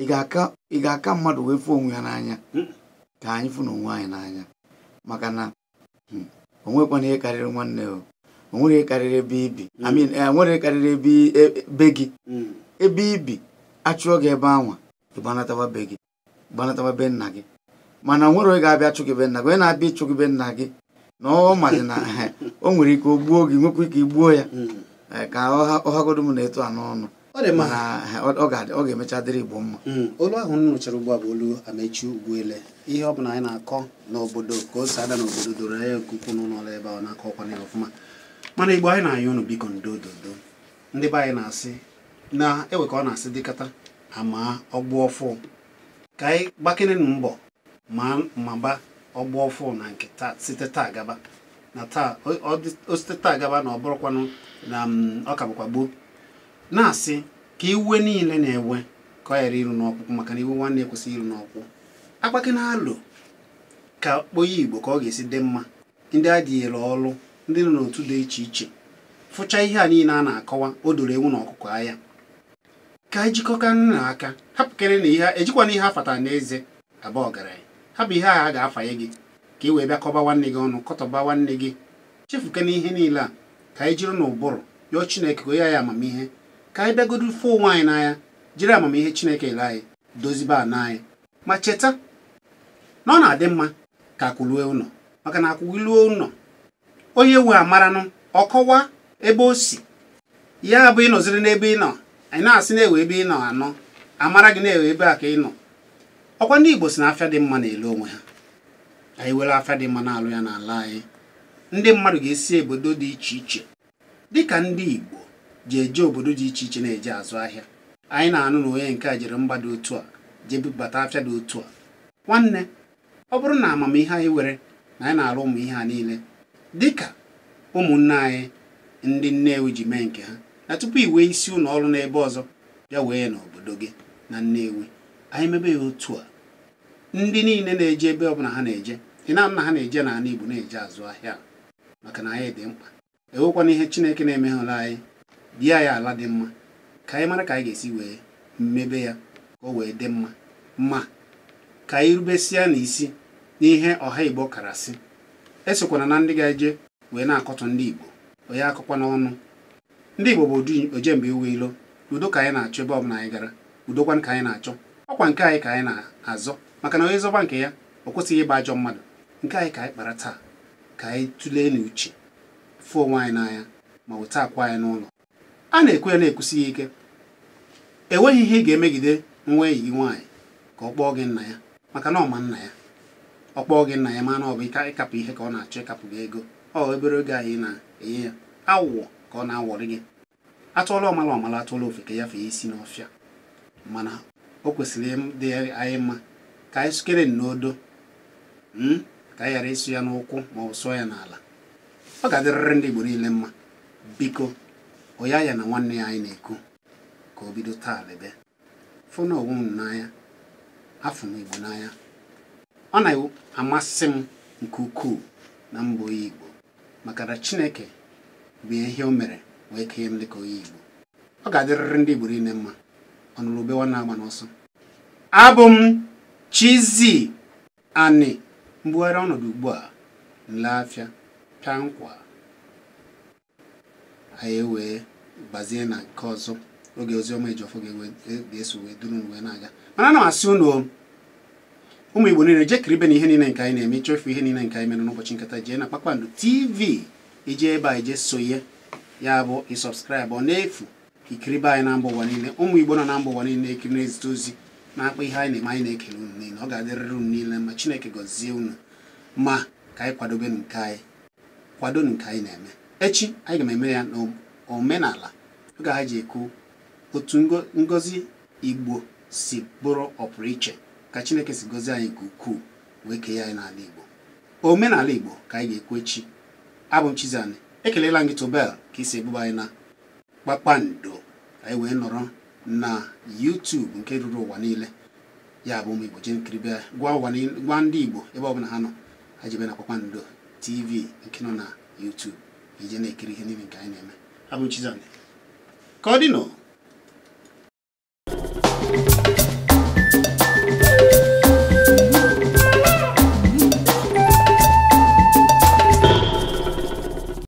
ị ga-aka mmadụ wee fụ onwe ya n'anya hmm. ka anyị fụ na onwe anyị n'anya maka na hmm, o nwekwana ihe karịrị nwanne o onwere karịrị ebe ibi enwere eh, karịrị ebe e, e, be gị ebe ibi achụọ gị ebe anwa ịgbanatawa be gị gbanatawa be nna gị mana onwere onye ga-abịa chụ gị be nna gị onye na-abịa ịchụ gị be nna gị na ọ mazi na eh, o nwere ike o gbuo gị nwekwa ike igbuo ya hmm. eh, ka ọhagodo m na-eto a n'ọnụ eh, ọ ga-emecha dịrị igbo mma hmm. olu ahụ nụchara ugbu a bụ olu amechi ugbuele ihe ọ bụla anyị na-akọ n'obodo ka o si ada n'obodo doro anya nke ukwuu n'ụlọ ebe ahụ na-akọ ọkwa ya ọfụma mana igbo anyị na-ayọ unu biko ndo dodo ndị be anyị na-asị na ewe ka ọ na-asị dịkata ama ọgbụ ọfụ ka anyị gbakere na mbọ ma maba ọgba ọfụ na nke taa site taa gaba na taa o site taa gaba na ọ bụrụkwanụ na mm, ọka bụkwa gboo na-asị ka iwe niile na-ewe ka ọ ghara iru n'ọkpụkpụ maka na iwe nwanne ekwesịghị iru n'ọkpụ agbake na alụ ka onye igbo ka ọ ga-esi dị mma ndị adịghịla ọrụ ndị nọ n'otu dị iche iche fụcha ihe a niile a na-akọwa o doro ewu na ọkụkọ ahịa ka anyị jikọka nna aka hapụkere na ihe ejikwana ihe afata na eze aba ọgaranya hapụ bụ ihe a ga-afanye gị ka ị wee bịa kọba nwanne gị ọnụ kọtọba nwanne gị chefukena ihe niile a ka anyị jiri n'ụbụrụ yọọ chineke ka ya ya amamihe ka anyị bịagodo fụ onwe anyị n'anya jiri amamihe chineke ele anyị dozibe ana anyị ma cheta na ọ na-adị mma ka akwụlue ụlọ maka na akwụgiluo ụlọ onye we amaranụ ọ kọwa ebe o si ya bụ ịnọziri n'ebe ị nọ anyị na-asị na-ewe ebe ị nọ anọ amara gị na-ewe ebe a ka ị nọ ọkwa ndị Igbo si na afịa dị mma na-ele onwe ha anyị were afịa dị mma na-alụ ya n'ala anyị ndị mmadụ ga-esi obodo dị iche iche dịka ndị Igbo ji eje obodo dị iche iche na-eje azụ ahịa anyị na-anụ na onye nke a jere mba dị otu a jee bubata afịa dị otu a nwanne ọ bụrụ na amamihe anyị were na anyị na-alụ ụmụ ihe ha niile dịka ụmụnne anyị ndị Nnewi ji mee nke ha na tupu i wee isi ụlọ ọrụ n'ebe ọzọ bịa wee n'obodo gị na Nnewi anyị mebe ya otu a ndị niile na-eje ebe ọbụla ha na-eje ị na na ha na-eje n'ala Igbo na-eje azụ ahịa maka na anyị dị mkpa enwekwana ihe Chineke na-emeghụla anyị bịa anyị ala dị mma ka anyị mara ka anyị ga-esi wee mmebe ya ka o wee dị mma ma ka anyị rubesịa n'isi n'ihe ọha Igbo karasị esokwana na ndị ga-eje wee na akọtụ ndị Igbo onye akụkwa n'ọnụ ndị Igbo bụ oje mgbe iwe ilo udo ka anyị na-achọ ebe ọbụla anyị gara udokwan ka anyị na-achọ ọkwa nke anyị ka anyị na-azọ maka na onye zọba nke ya ọ kwụsịghị ịgba ajọ mmadụ nke anyị ka anyị kpara taa ka anyị tụlee n'uche fụ onwe anyị n'anya ma weta akwa anyị n'ụlọ a na-ekwe ya na-ekwusi ike enweghị ihe ị ga-emegide nwa enyi gị nwaanyị ka ọ kpọọ gị nna ya maka na ọma nna ya ọ kpọọ gị nna ya mana ọ bụ ịkapụ ihe ka ọ na-achọ ịkapụ gị ego ọ obere oge anyị na-enye ya awụwọ ka ọ na-awọrị gị atụọla ọmala ọmala atụọla ofe ka ya fee isi n'ọfịa mana o kwesịrị dị anyị mma ka anyị sukere n'odo hmm, ka anyị ghara ịsụ ya n'ụkwụ ma ọ sụọ ya n'ala ọ ga-adịrịrị ndị Igbo niile mma biko oya ya na nwanne ya anyị na-ekwu ka o bido taa lebe fụna onwe m n'anya afọ m Igbo n'anya ọ na-amasị m nke ukwuu na mbọ Igbo maka na Chineke bụ ihe o mere wee kenye m ka onye Igbo ọ ga-adịrịrị ndị Igbo niile mma ọnụrụ ube nwa na-agba n'ọsọ abụ m Chizzy Ani mbugharị ọnọdụ ugbu a nleafịa pịa nkwa anyị e wee gbazie na nke ọzọ oge oziọma ijọfọ e, ga-eso wee duru wee na-aga mana ana m asị ụnụ ụmụ Igbo niile jekiri ibe na ihe niile nke anyị na-eme ịchọfu ihe niile nke anyị mere n'ụbọchị nkata jee na Kpakpando TV ije ebe a ije sonye ya bụ ọ n'efu ikiri be anyị na mba ụwa niile ụmụ igbo nọ na mba ụwa niile ekiri na-ezite ozi na-akpa ihe anyị na-eme anyị na-ekele unu niile ọ ga-adịrịrị unu niile ma chineke gọzie unu ma ka anyị kwadobe nke anyị kwado nke anyị na-eme echi anyị ga-eme ya n'omenala oge ha ji ekwu otu ngozi igbo si bụrụ ọpụrụ iche ka chineke si gozie anyị nke ukwuu wee kee anyị n'ala igbo omenala igbo ka anyị ga-ekwu echi abụ m Chizzy ekelela m gị tụbel ka isi ebuba anyị na kpakpando anyị wee nọrọ na YouTube nke ruru ụwa niile ya bụ ụmụ Igbo nkiri gwa ndị Igbo ebe ọbụla ha nọ ha jebe na kpakpando TV nke nọ na YouTube ije na-ekiri ihe niile nke anyị na-eme abụ m ka ọ dị nọ